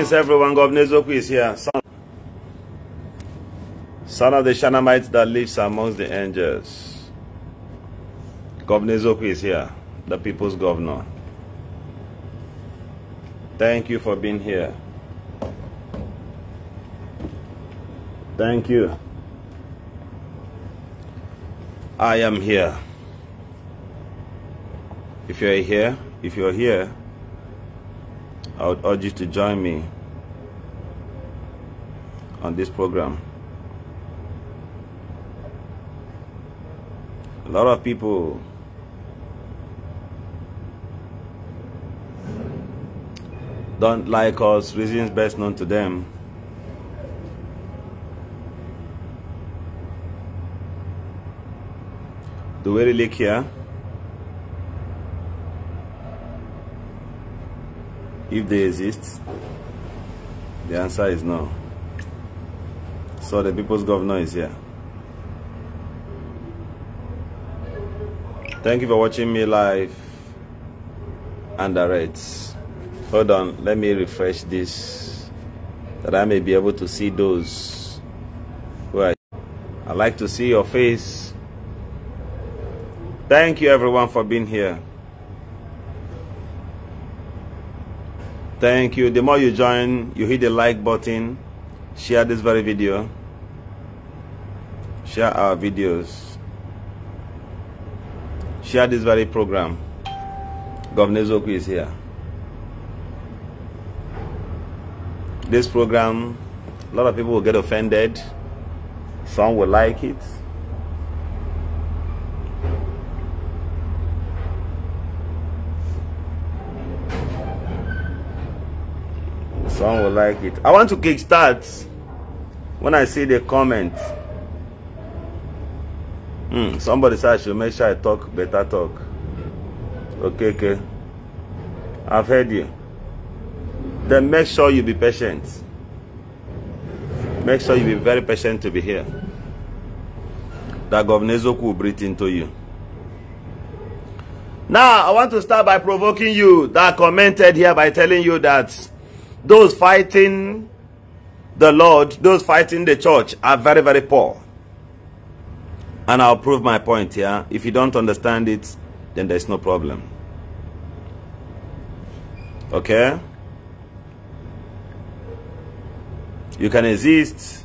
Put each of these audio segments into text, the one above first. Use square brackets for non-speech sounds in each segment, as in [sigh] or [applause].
Greetings everyone, Governor Zoku is here, son, son of the Shanamites that lives amongst the angels. Governor Zoku is here, the people's governor. Thank you for being here. Thank you. I am here. If you're here, if you're here, I would urge you to join me on this program. A lot of people don't like us, reasons best known to them. Do we really care? if they exist? The answer is no. So the people's governor is here. Thank you for watching me live and direct. Hold on, let me refresh this that I may be able to see those who are. I like to see your face. Thank you everyone for being here. Thank you. The more you join, you hit the like button, share this very video, share our videos, share this very program. Governor Zoku is here. This program, a lot of people will get offended. Some will like it. Some will like it. I want to kickstart when I see the comment. Hmm, somebody said I should make sure I talk better talk. Okay, okay. I've heard you. Then make sure you be patient. Make sure you be very patient to be here. That Governor Zoku will breathe into you. Now, I want to start by provoking you that commented here by telling you that Those fighting the Lord, those fighting the church are very, very poor. And I'll prove my point here. If you don't understand it, then there's no problem. Okay? You can exist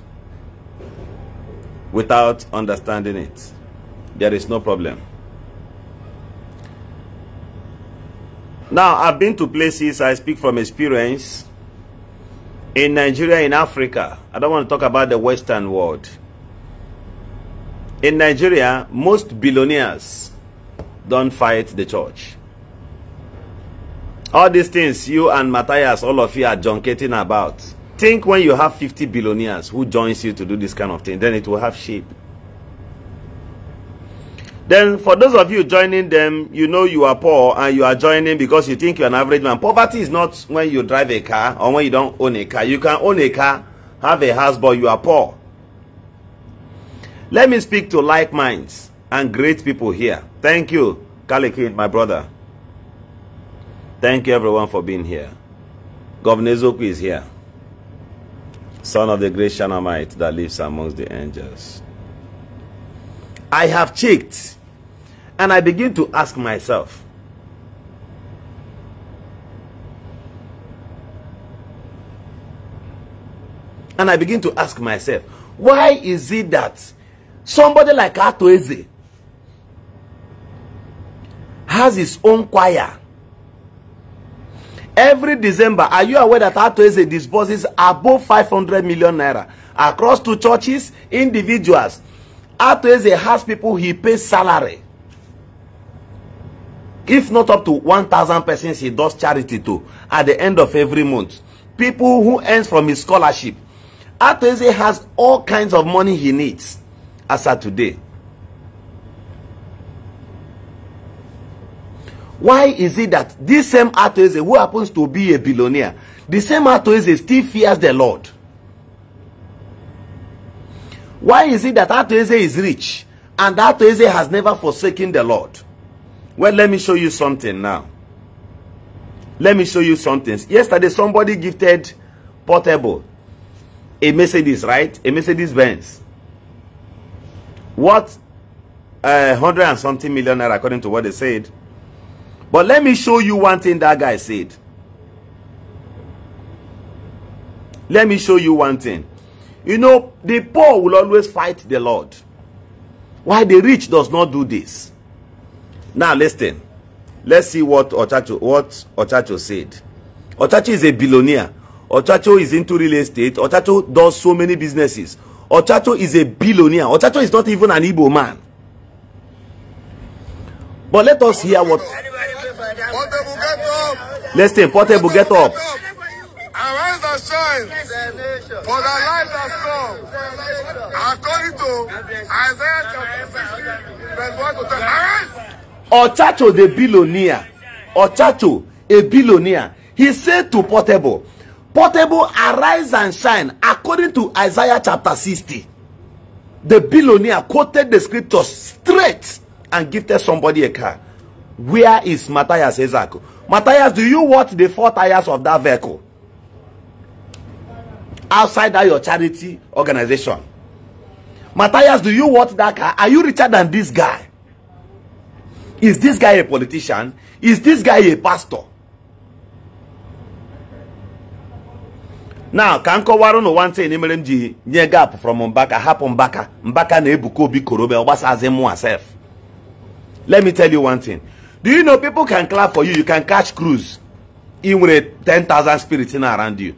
without understanding it. There is no problem. Now, I've been to places, I speak from experience, in Nigeria, in Africa, I don't want to talk about the Western world. In Nigeria, most billionaires don't fight the church. All these things you and Matthias, all of you are junketing about. Think when you have 50 billionaires who joins you to do this kind of thing, then it will have shape. Then for those of you joining them, you know you are poor and you are joining because you think you're an average man. Poverty is not when you drive a car or when you don't own a car. You can own a car, have a house, but you are poor. Let me speak to like minds and great people here. Thank you, Kalikid, my brother. Thank you everyone for being here. Governor Zoku is here. Son of the great Shanamite that lives amongst the angels. I have checked And I begin to ask myself, and I begin to ask myself, why is it that somebody like Atoeze has his own choir? Every December, are you aware that Atoeze disburses above 500 million naira across two churches, individuals? Atoeze has people he pays salary. if not up to 1,000 persons he does charity to at the end of every month. People who earns from his scholarship. Ateze has all kinds of money he needs as at today. Why is it that this same Ateze who happens to be a billionaire, the same Ateze still fears the Lord? Why is it that Ateze is rich and Ateze has never forsaken the Lord? Well, let me show you something now. Let me show you something. Yesterday, somebody gifted Portable a Mercedes, right? A Mercedes Benz. What? Uh, 100 eh, and something millionaire, according to what they said. But let me show you one thing that guy said. Let me show you one thing. You know, the poor will always fight the Lord. Why the rich does not do this. Now listen. Let's see what Ochacho what Ochacho said. Ochacho is a billionaire. Ochacho is into real estate. Ochacho does so many businesses. Ochacho is a billionaire. Ochacho is not even an Igbo man. But let us hear what. Listen, Portable, get up. for the light has come. According to Isaiah chapter 60, verse 1 to 10. Arise! Otato the billionaire, Otato a billionaire, he said to Portable, Portable arise and shine according to Isaiah chapter sixty. The billionaire quoted the scriptures straight and gifted somebody a car. Where is Matthias Ezako? Matthias, do you watch the four tires of that vehicle? Outside that your charity organization. Matthias, do you watch that car? Are you richer than this guy? Is this guy a politician? Is this guy a pastor? now ka m kọwara ụnụ nwa ntị m ji nye gap from mbaka hapụ mbaka mbaka na ebuka obi korobe ọgbasazi m asef let me tell you one thing do you know people can clap for you you can catch cruise ị nwere 10,000 spirits in around you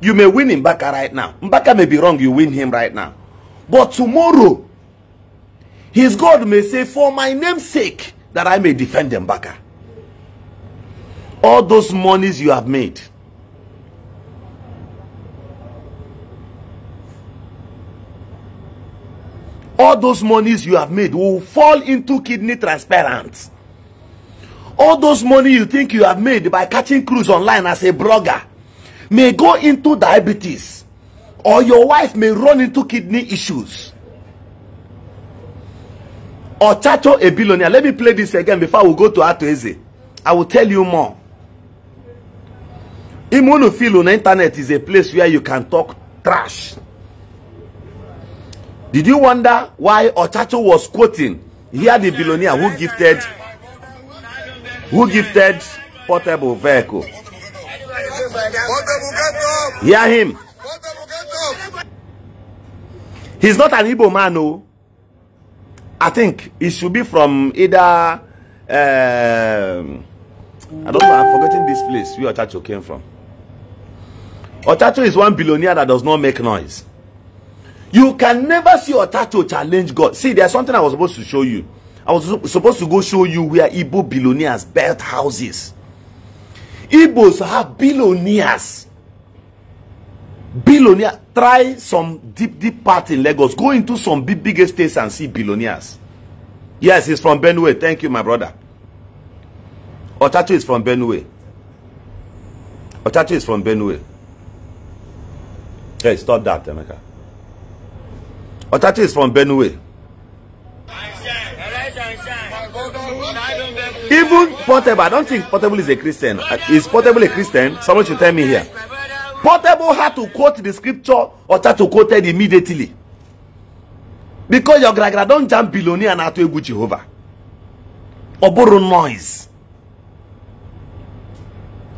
you may win mbaka right now mbaka may be wrong you win him right now but tomorrow his god may say for my name's sake that I may defend them Baka. Ah. All those monies you have made. All those monies you have made will fall into kidney transparent. All those money you think you have made by catching cruise online as a blogger may go into diabetes or your wife may run into kidney issues. Ochacho Ebilonia. Let me play this again before we go to Atoeze. I will tell you more. Imunufil on the internet is a place where you can talk trash. Did you wonder why Ochacho was quoting here the billionaire who gifted who gifted portable vehicle? Hear him. He's not an Igbo man, no. Oh. I think it should be from either um, I don't know I'm forgetting this place where Otacho came from. Otacho is one billionaire that does not make noise. You can never see Otacho challenge God. See, there's something I was supposed to show you. I was supposed to go show you where Igbo billionaires built houses. Igbos have billionaires billionaire try some deep deep part in lagos go into some big big estates and see billionaires yes he's from benue thank you my brother otacho is from benue otacho is from benue hey stop that emeka otacho is from benue even portable i don't think portable is a christian is portable a christian someone should tell me here Portable had to quote the scripture Ocha to quote it immediately. Because your gragra don jam Biloni and Atu Egwu Jehovah. Oboro noise.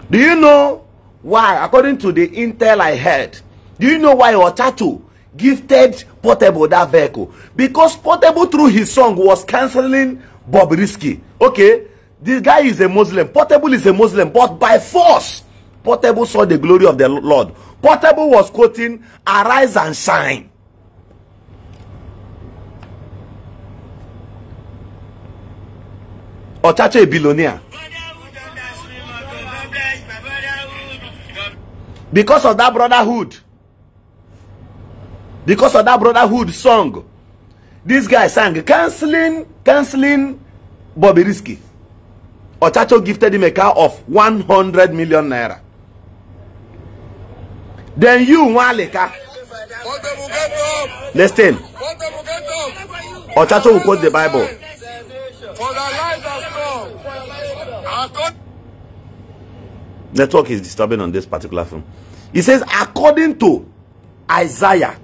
Do you know why, according to the intel I heard, do you know why Otatu gifted Portable that vehicle? Because Portable, through his song, was cancelling Bob Risky. Okay, this guy is a Muslim. Portable is a Muslim, but by force, Portable saw the glory of the Lord. Portable was quoting, Arise and shine. Ochacho Ebilonia. Because of that brotherhood. Because of that brotherhood song. This guy sang, canceling, canceling Bobby Risky. Ochacho gifted him a car of 100 million naira. Then you, Waleka. Listen. chato will quote the Bible. Network is disturbing on this particular film. He says, according to Isaiah,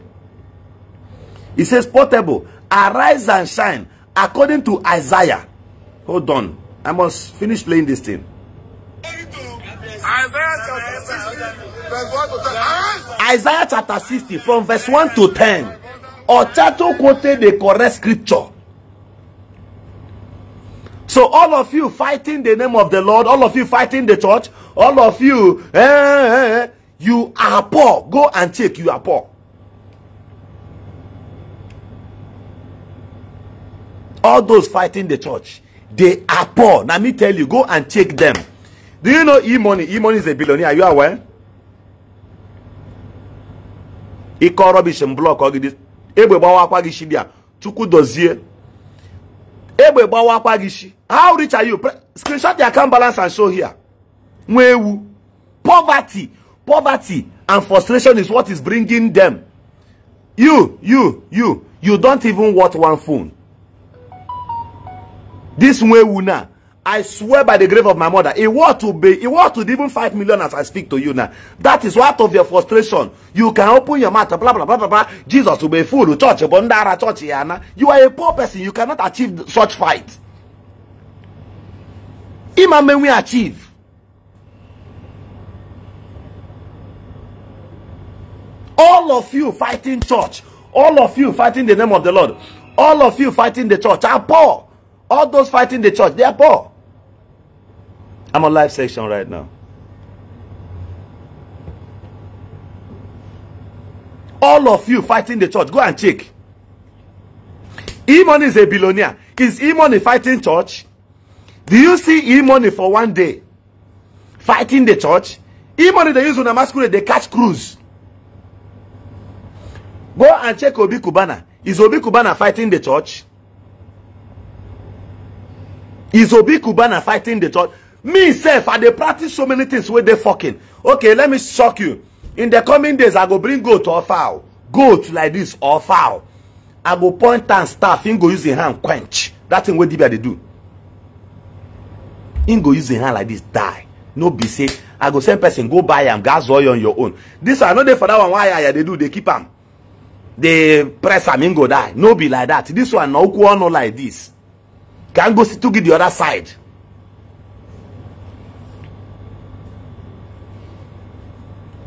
He says, portable, arise and shine, according to Isaiah. Hold on. I must finish playing this thing. Isaiah Isaiah chapter 60 from verse 1 to 10. Ochato quoted the correct scripture. So all of you fighting the name of the Lord, all of you fighting the church, all of you, eh, eh, eh you are poor. Go and check, you are poor. All those fighting the church, they are poor. Let me tell you, go and check them. Do you know E-Money? E-Money is a billionaire. Are you aware? ịkọ rọbish blọk gị egbe gbawa akwa gị shibia chukwu dozie egbe gbawa akwa gị shi how rich are you screenshot the account balance and show here nwa ewu poverty poverty and frustration is what is bringing them you you you you don't even want one phone this nwa ewu now I swear by the grave of my mother, it will to be, it will to be even 5 million as I speak to you now. That is what of your frustration. You can open your mouth, blah, blah, blah, blah, blah. Jesus will be full, church, bondara, church, yana. You are a poor person. You cannot achieve such fight. Imam may we achieve. All of you fighting church. All of you fighting the name of the Lord. All of you fighting the church are poor. All those fighting the church, they are poor. I'm on live session right now. All of you fighting the church, go and check. Emon is a billionaire. Is Emon money fighting church? Do you see e for one day fighting the church? e they use on a masquerade, they catch crews. Go and check Obi Kubana. Is Obi Kubana fighting the church? Is Obi Kubana fighting the church? me sef i dey practice so many things wey dey fokin okay let me shock you in the coming days i go bring goat or fowl goat like this or fowl i go point am staff him go use him hand quench that thing wey dibia dey do him go use him hand like this die no be say i go send person go buy am gas oil on your own this one i no dey for that one why aya dey do dey keep am dey press am him go die no be like that this one na okwu ọnu like this can go to give the other side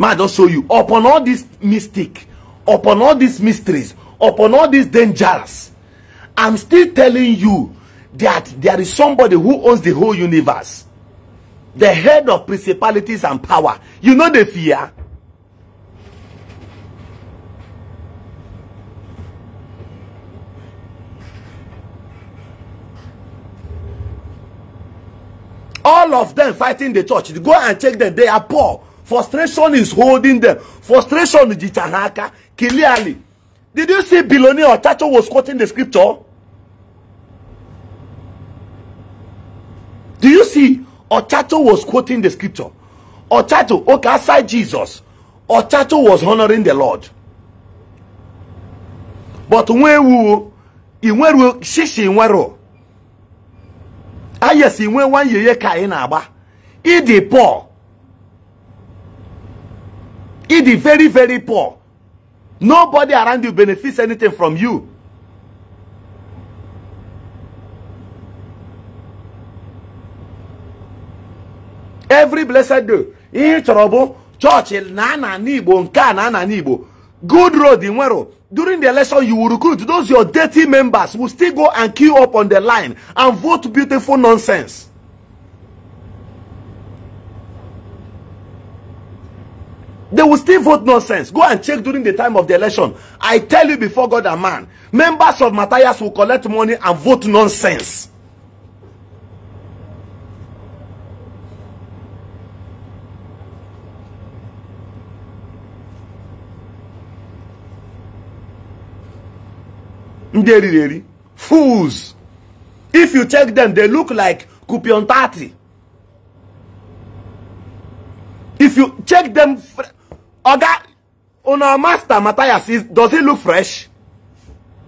May I just show you. Upon all this mystic, upon all these mysteries, upon all these dangers, I'm still telling you that there is somebody who owns the whole universe. The head of principalities and power. You know the fear. All of them fighting the church. Go and check them. They are poor. frustration is holding them frustration is ha clearly did you see billionaire Chacho was quoting the scripture do you see Ochacho was quoting the scripture Ochacho okay aside Jesus Ochacho was honoring the Lord but nwewu inweru shishi inweru ayesi ah, inwe nwanyeye ka ị na-agba ịdị poor. The very, very poor. Nobody around you benefits anything from you. Every blessed day, in trouble, church, chọọchị na nana n'Igbo na good road inwero during the election you will recruit those your dirty members will still go and queue up on the line and vote beautiful nonsense. They will still vote nonsense. Go and check during the time of the election. I tell you before God and man, members of Matthias will collect money and vote nonsense. Fools. If you check them, they look like Kupion If you check them... Oga, on our master Matthias, is, does he look fresh?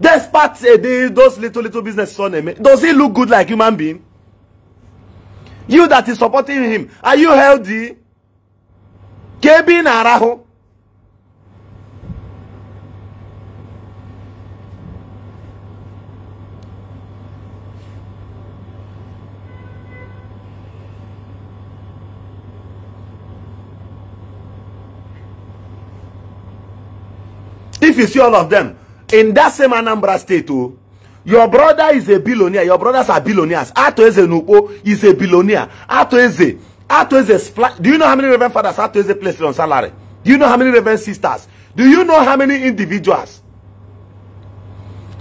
Despite uh, the, those little, little business son, eh, does he look good like human being? You that is supporting him, are you healthy? Kebi na if you see all of them, in that same Anambra state, oh, your brother is a billionaire. Your brothers are billionaires. Ato Nupo is a billionaire. Ato Eze. Do you know how many Reverend fathers Ato placed on salary? Do you know how many Reverend sisters? Do you know how many individuals?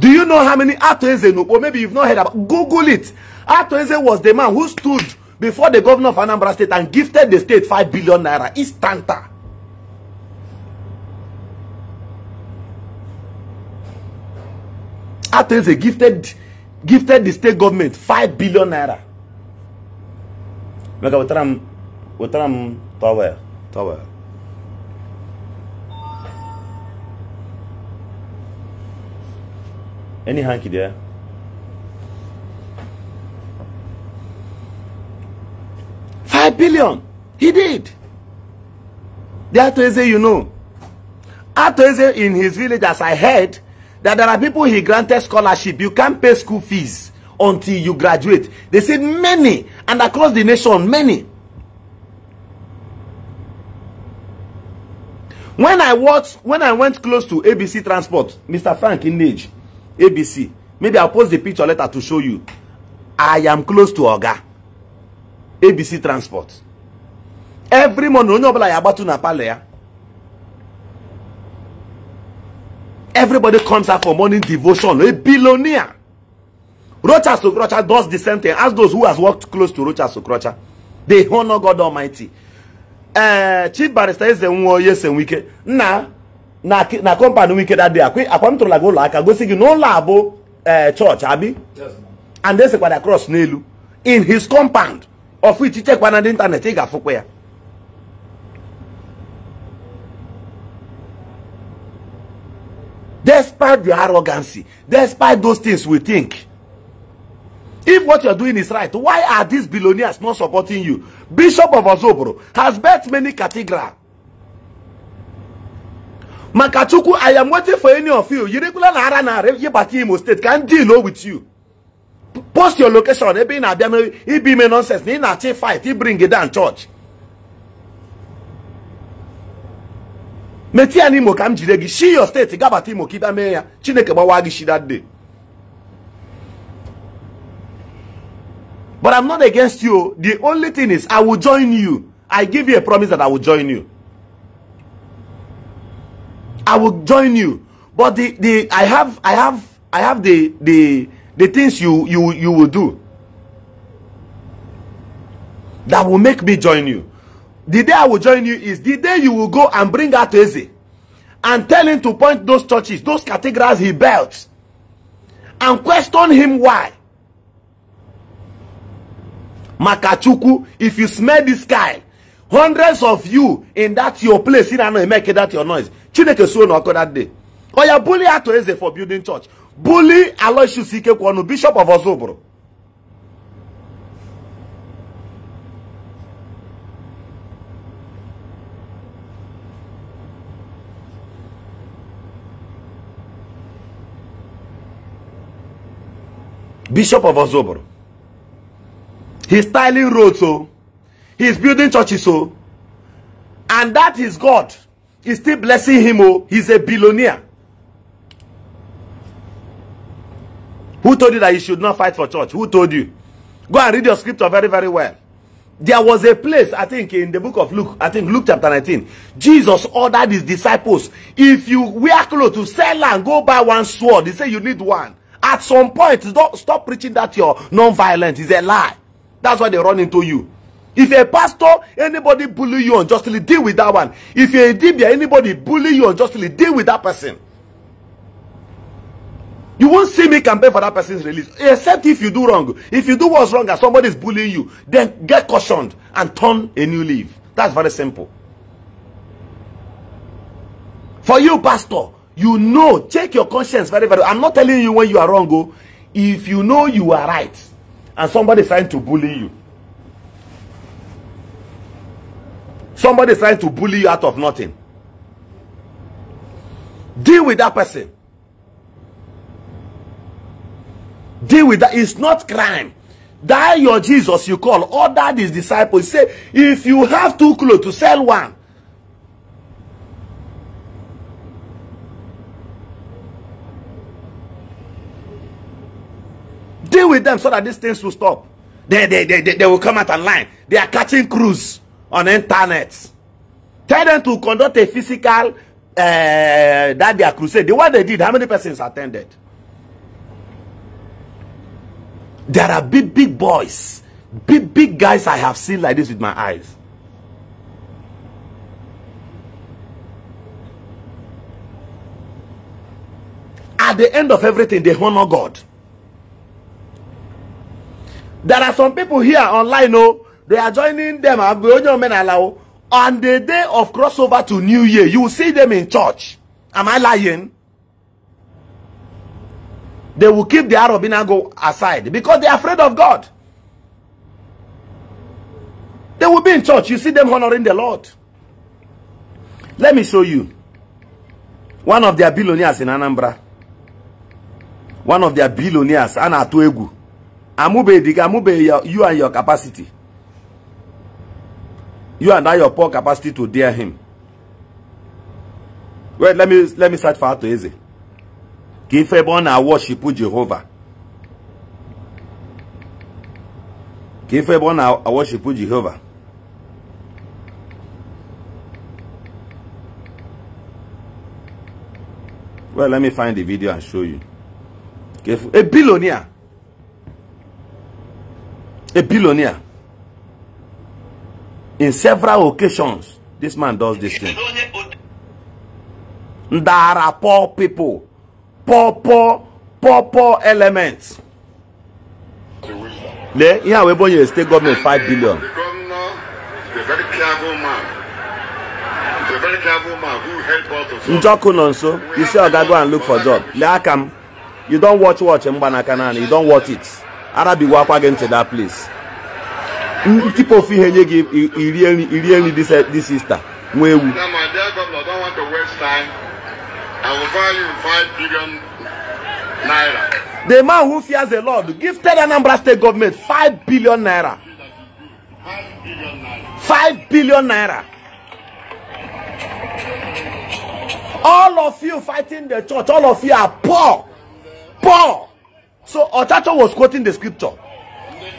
Do you know how many Ato Nupo? Maybe you've not heard about Google it. Ato was the man who stood before the governor of Anambra State and gifted the state 5 billion naira. It's Tanta. a gifted, gifted the state government 5 billion naira. Maka wetara m wetara m Any hanky there? Five billion. He did. The Atoeze, you know. Atoeze in his village, as I heard, that there are people he granted scholarship you can't pay school fees until you graduate they said many and across the nation many when i watched when i went close to abc transport mr frank inage abc maybe i'll post the picture later to show you i am close to oga abc transport every morning onye ọbụla ya agbatu na palọ ya Everybody comes out for morning devotion. A billionaire. Rocha Sokrocha does the same thing. Ask those who has worked close to Rocha Sokrocha. They honor God Almighty. Uh, Chief Barrister eze nwoye one yes Na na na company that day. Akwa akwa mtola go aka go sigi no labo uh, eh, church abi. Yes. And they say cross nelu in his compound of which he check one the internet he ga afụkwa ya. despite the arrogancy, despite those things we think. If what you're doing is right, why are these billionaires not supporting you? Bishop of Ozobro has built many cathedrals. Makachuku, I am waiting for any of you. You regular Nara Nara, Yebati Imo State can deal with you. Post your location, it be in Abia, nonsense, it be fight, He bring it down church. metịa n'imo ka m jide gị shi yo steeti gabata imo ka ịbịa mee ya chineke gbawa gị shi that day but i'm not against you the only thing is i will join you i give you a promise that i will join you i will join you but the the i have i have i have the the the things you you you will do that will make me join you the day I will join you is the day you will go and bring out Eze and tell him to point those churches, those cathedrals he built, and question him why. Makachuku, if you smell this guy, hundreds of you in that your place, in Ano, make that your noise. Chineke so no that day. Oya bully Ato Eze for building church. Bully Aloysius Ikekwono, Bishop of Ozobro. Bishop of Ozobor. He's tiling roads, so oh. he's building churches, so oh. and that is God. He's still blessing him, oh, he's a billionaire. Who told you that you should not fight for church? Who told you? Go and read your scripture very, very well. There was a place, I think, in the book of Luke, I think Luke chapter 19. Jesus ordered his disciples, if you wear clothes to sell and go buy one sword, he said you need one. At some point, don't stop preaching that you're non-violent. It's a lie. That's why they run into you. If a pastor, anybody bully you unjustly, deal with that one. If you're a dibia, anybody bully you unjustly, deal with that person. You won't see me campaign for that person's release, except if you do wrong. If you do what's wrong and somebody is bullying you, then get cautioned and turn a new leaf. That's very simple. For you, pastor, you know, check your conscience very, very. I'm not telling you when you are wrong, go. Oh. If you know you are right and somebody is trying to bully you, somebody is trying to bully you out of nothing, deal with that person. Deal with that. It's not crime. Die your Jesus you call. Order these disciples. Say, if you have two clothes to sell one, Deal with them so that these things will stop. They, they, they, they, they will come out online. They are catching crews on internet. Tell them to conduct a physical uh, that their are crusade. The one they did, how many persons attended? There are big, big boys, big, big guys I have seen like this with my eyes. At the end of everything, they honor God. there are some people here online oh they are joining them agbeojo menala, oh on the day of crossover to new year you will see them in church am i lying they will keep the arab inago aside because they are afraid of god they will be in church you see them honoring the lord let me show you one of their billionaires in anambra one of their billionaires Anna amube gị amube ya you and your capacity you and I your poor capacity to dare him wait let me let me search for atọ eze ka ife ebe ọ na-awọshipụ Jehova ka ife ebe ọ na Jehova well let me find the video and show you a e billionaire a billionaire. In several occasions, this man does this thing. There are poor people, poor, poor, poor, poor elements. There, here yeah, we born a state government five billion. The very clever man. He's very clever man who helped us. Njoku Nonso, you say Oga go and look for job. Leakam, you don't watch watch Mbanakanani, you don't watch it. Arabi akwa gị ntị that place ntịpa ofu ihe nye gị iri nri this, this sister, ewu the man who fears the lord gifted anambra state government 5 billion naira 5 billion naira all of you fighting the church all of you are poor poor So Otato was quoting the scripture.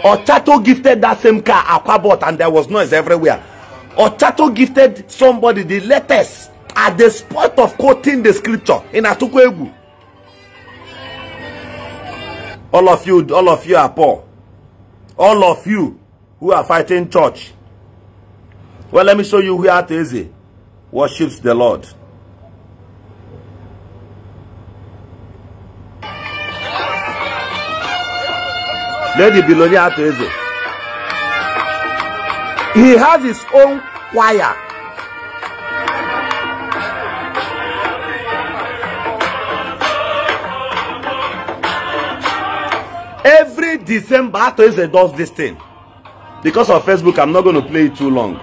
Otato gifted that same car Aquabot, and there was noise everywhere. Otato gifted somebody the latest at the spot of quoting the scripture in Atukwegu. All of you, all of you are poor. All of you who are fighting church. Well, let me show you where Ateze worships the Lord. Lady Bilonia billionaire He has his own choir. Every December, Atoise does this thing. Because of Facebook, I'm not going to play it too long.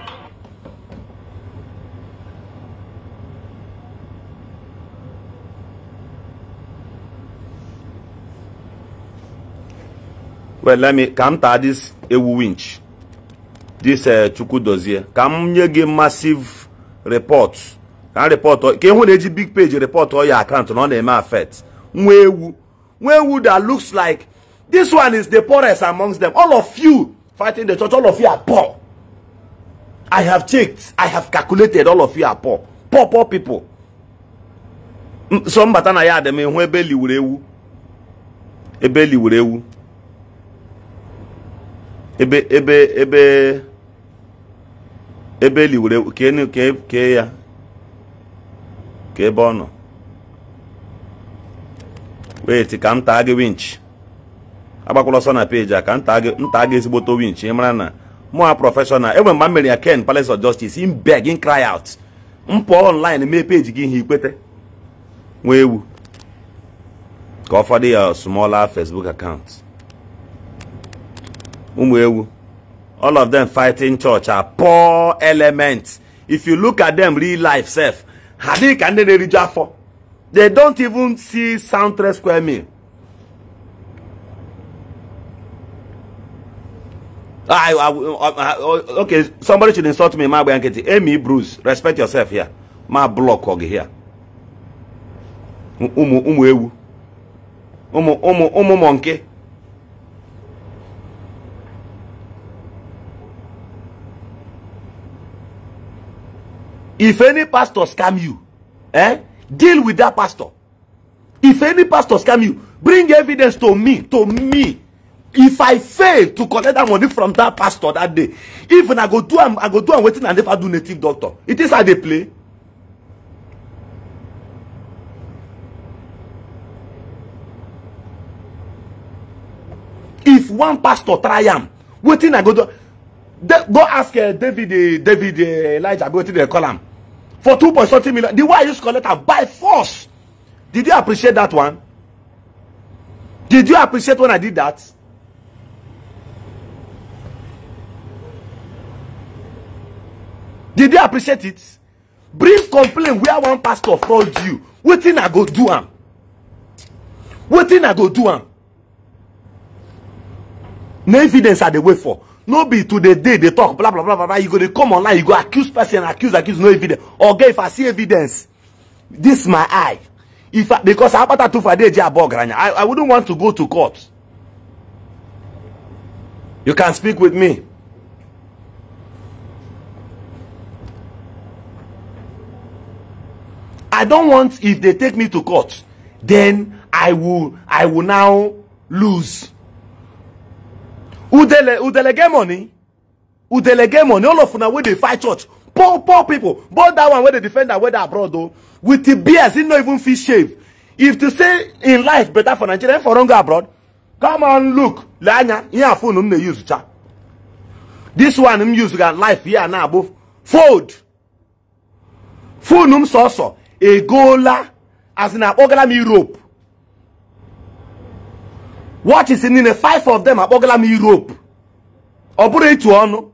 well let me ka m taa this ewu winch this dozie ka m nye gị massive report ka report ka ịhụ na eji big page report ọ ya account na ọ na-eme nwa ewu nwa ewu that looks like this one is the poorest amongst them all of you fighting the church all of you are poor i have checked i have calculated all of you are poor poor poor people so mbata na ya adịm ịhụ ebe liwuru ewu ebe liwuru ewu ebe ebe ebe ebe eli were kee kee ya ka ebe ọ nọ wait ka m taa gị winch agbakwala ọsọ na peji a ka nta gị ezigboto winch ị mara na mụa prọfeshọnal enwere mgbe m mere ya ken palace of justice in beg in cry out m online mee peji gị ihe ikpete nwa ewu ka ọ fọdụ ya small Facebook account ụmụ ewu all of them fighting church are poor elements if you look at them real life sef ha dị ka ndị na-eriju afọ they don't even see sound three square meal ah, I, I, I, uh, uh, okay, somebody should insult me. My blankety. Amy Bruce, respect yourself here. My block hog here. Umu umu ewu. Umu umu umu monkey. If any pastor scam you, eh, deal with that pastor. If any pastor scam you, bring evidence to me, to me. If I fail to collect that money from that pastor that day, even I go do am, I go do am wetin I never do native doctor. It is how they play. if one pastor try am wetin i go do De go ask uh, david uh, david uh, elijah wetin dem call am for two point something million the way I used to by force did you appreciate that one did you appreciate when I did that. Did you appreciate it? Bring complaint where one pastor fraud you. Wetin I go do am? Wetin I go do am? No evidence I dey wait for no be to the day they talk blah blah blah blah you go dey come online you go accuse person accuse accuse no evidence oga if i see evidence this my eye if I, because abata tufade je abogranya i i wouldn't want to go to court you can speak with me i don't want if they take me to court then i will i will now lose udele udele get money udele get money all of una wey dey fight church poor poor people but that one wey dey defend am wey dey abroad o with the beers he no even fit shave if to say in life better for nigeria for run go abroad come on look Lanya, here ihe a phone m na use cha this one m use ga life here na abụ fold phone m sọsọ Egola as na akpọgala m europe watch is in the five of them akpọgala m Europe ọ bụrụ ịtụ ọnụ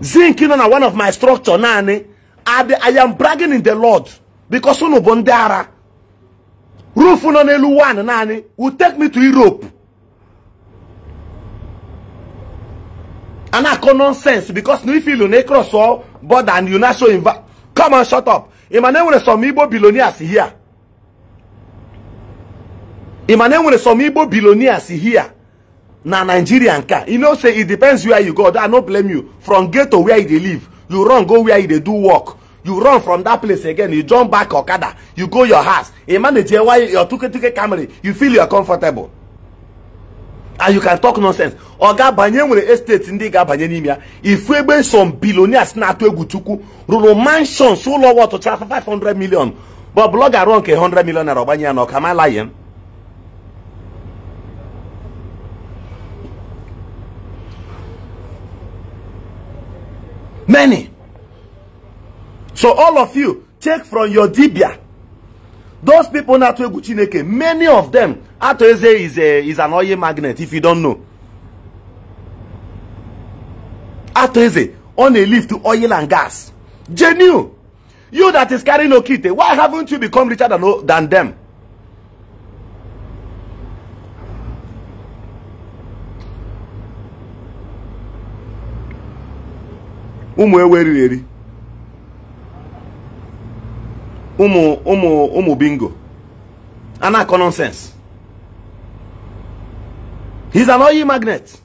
zinc nọ na one of my structure naanị adị I am bragging in the Lord because unu bụ ndị ara roof nọ n'elu one naanị will take me to Europe a akọ nonsense because na ife ilu na ịkrọsọ border and you na show inva come on shut up ị ma na enwere some Igbo billionaires here ị ma na enwere some Igbo billionaires here na Nigeria nka you know say it depends where you go I no blame you from ghetto where you dey live you run go where you dey do work you run from that place again you jump back okada you go your house you manage your tuketuke camry you feel you are comfortable and you can talk nonsense oga banye nwere estate ndị ga-abanye n'ime ya ifu egbe some billionaires na-atụ egwu chukwu rụrụ mansions ụlọ ọtụcha 500 million but blọga rụọ nke 100 million naira ọgbanye ya na ọka malaye Many. So all of you, check from your dibia. Those people na Atwegu Chineke, many of them, Atoeze is, a, is an oil magnet, if you don't know. Atoeze, on a lift to oil and gas. genu You that is carrying Okite, why haven't you become richer than, than them? ụmụ ewu eriri eri ụmụ ụmụ ụmụ bingo a na-akọ he's an oyi magnet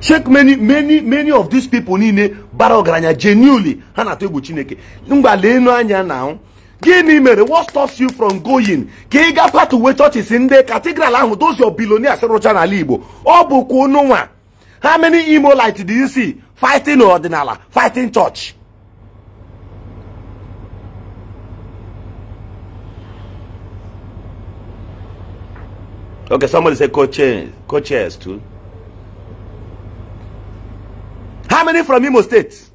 check many many many of these people niile bara ọgaranya genuinely ha na-atụ egwu chineke mgba leenu anya na gịnị mere what stops you from going ka ị gakwa tuwe chọchis ndị katigral ahụ dozie biloni asịrụcha n'ala igbo ọ bụkwa ụnụnwa how many Imolites do you see fighting ọdịnala fighting church okay somebody say coach, coaches too how many from Imo State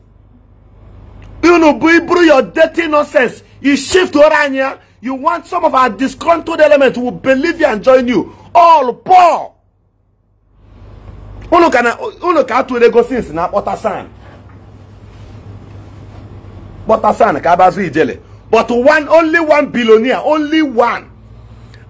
You know, iburu your dirty nonsense you shift to Orania. you want some of our disgruntled element who believe you and join you all poor unu ka na unu ka atụrụ ego sins na kpọtasan kpọtasan ka abazụ ijele but one only one billionaire only one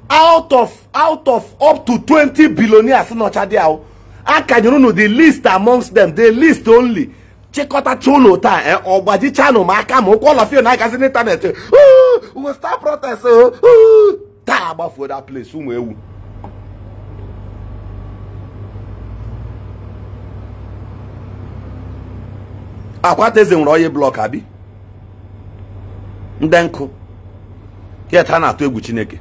out of out of up to 20 billionaires nọcha dị ahụ akanyere unu the list amongst them the list only chịkọtacha ụlọ taa eh, ọgbajichanụ m aka ma ụkwụ ọlọfio na-agazi n'ịntanetị we start protest eh, taa gbafuo that place ụmụ ewu akwata eze nwere onye blọk abi ndị nkụ yet na-atụ egwu chineke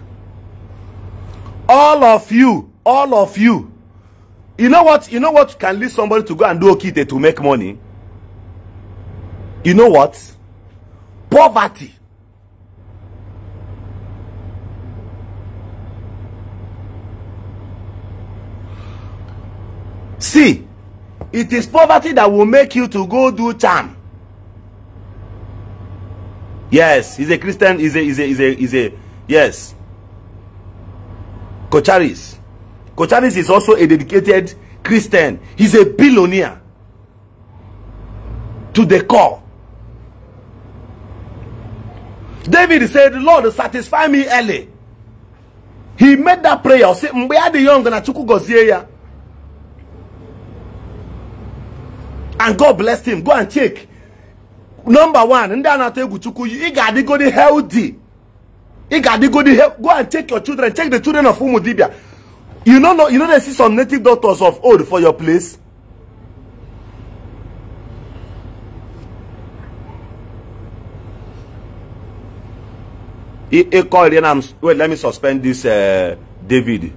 all of you all of you you know what you know what can lead somebody to go and do okite to make money you know what poverty see It is poverty that will make you to go do charm. Yes, he's a Christian, he's a, he's a, he's a, he's a yes. Kocharis. Kocharis is also a dedicated Christian. He's a billionaire. To the core. David said, Lord, satisfy me early. He made that prayer. say Mgbe adịghị ọ na Chukwu gọzie ya. and god bless him go and check number one ndị a na-atụ egwu chukwu ị ga-adịgodi healthy ị ga-adịgodi go and check your children check the children of ụmụ dibia you no know you no dey see some native doctors of old for your place ịkọ iri na wait let me suspend this uh, david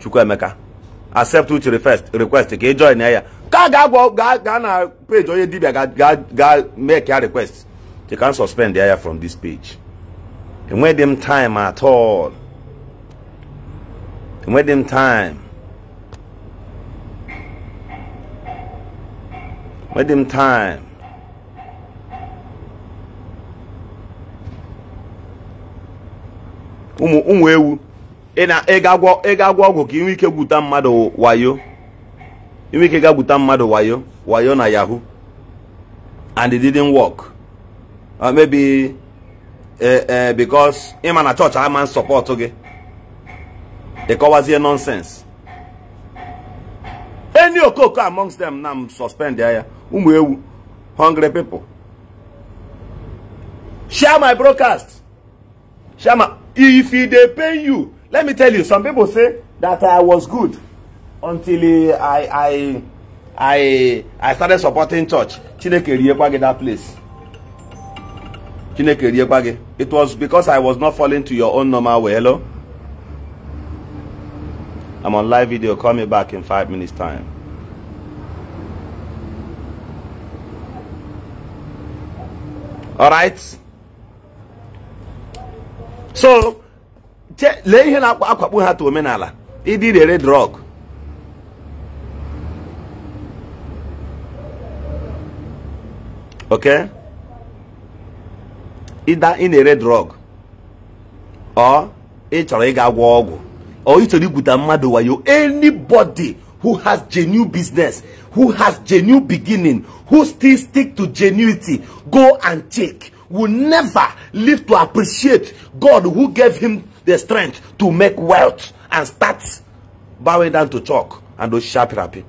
chukwuemeka accept uche request ka ị join ya ka ga-agwa gaa na page onye dibia ga make a request you can suspend ya from this page enweghị m time at all enweghị dem time enwe m time ụmụ ewu ị ga-agwọ ọgwụ ka inwe ike gwuta mmadụ wayo inwe ike ga-gwuta mmadụ wayo wayo na yahoo and it didn't work uh, maybe uh, uh, because ịma na chọọchị ama support gị ịkọwazie nonsense any okoko amongst them na m suspend ya ụmụ ewu hungry people share my broadcast share my if e dey pain you let me tell you some people say that i was good until I I I I started supporting church. Chineke Riepage that place. Chineke Riepage. It was because I was not falling to your own normal way. Hello? I'm on live video. Call me back in five minutes time. All right. So, lee ihe na-akpakpụ ha to omenala ịdị rere drọg okay? Either in a red drug or it's a ịga gwọ or or ị chọrọ igwuta mmadụ you anybody who has genuine business who has genuine beginning who still stick to genuity go and check will never live to appreciate God who gave him the strength to make wealth and start bowing down to chalk and those sharp rapping.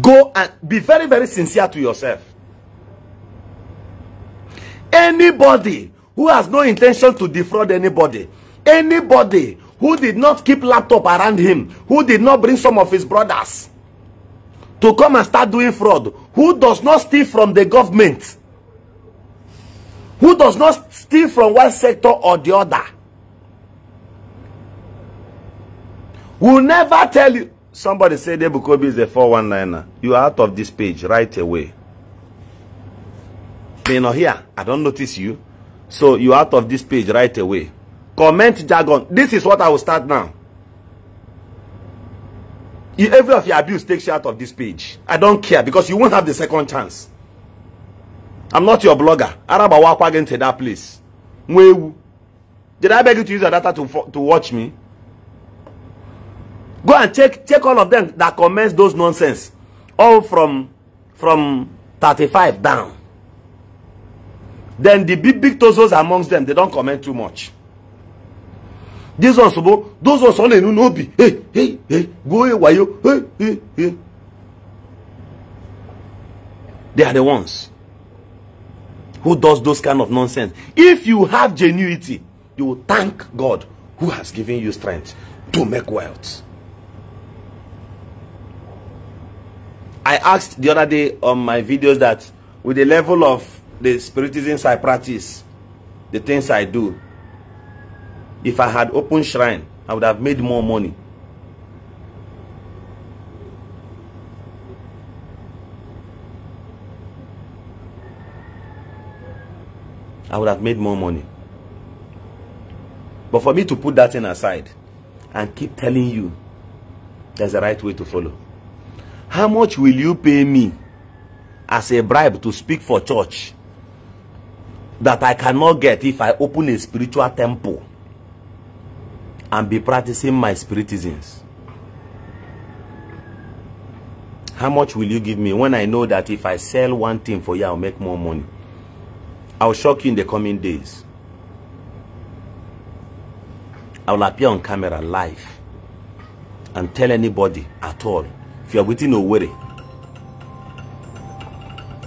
Go and be very, very sincere to yourself. Anybody who has no intention to defraud anybody, anybody who did not keep laptop around him, who did not bring some of his brothers to come and start doing fraud, who does not steal from the government, who does not steal from one sector or the other, will never tell you, Somebody said Ebukobi is a 419er. You are out of this page right away. They're not here. I don't notice you. So you are out of this page right away. Comment jargon. This is what I will start now. You, every of your abuse takes you out of this page. I don't care because you won't have the second chance. I'm not your blogger. Araba walk again that place. Did I beg you to use your data to, to watch me? Go and check check all of them that comments those nonsense. All from from 35 down. Then the big big tozos amongst them, they don't comment too much. These ones, those ones only know no be. Hey, hey, hey, go away, why you? Hey, hey, hey. They are the ones who does those kind of nonsense. If you have genuity, you will thank God who has given you strength to make wealth. I asked the other day on my videos that with the level of the spiritism I practice, the things I do, if I had open shrine, I would have made more money. I would have made more money. But for me to put that thing aside and keep telling you there's a right way to follow. How much will you pay me as a bribe to speak for church that I cannot get if I open a spiritual temple and be practicing my spiritisms? How much will you give me when I know that if I sell one thing for you, I'll make more money? I'll shock you in the coming days. I will appear on camera live and tell anybody at all If you you're within worry,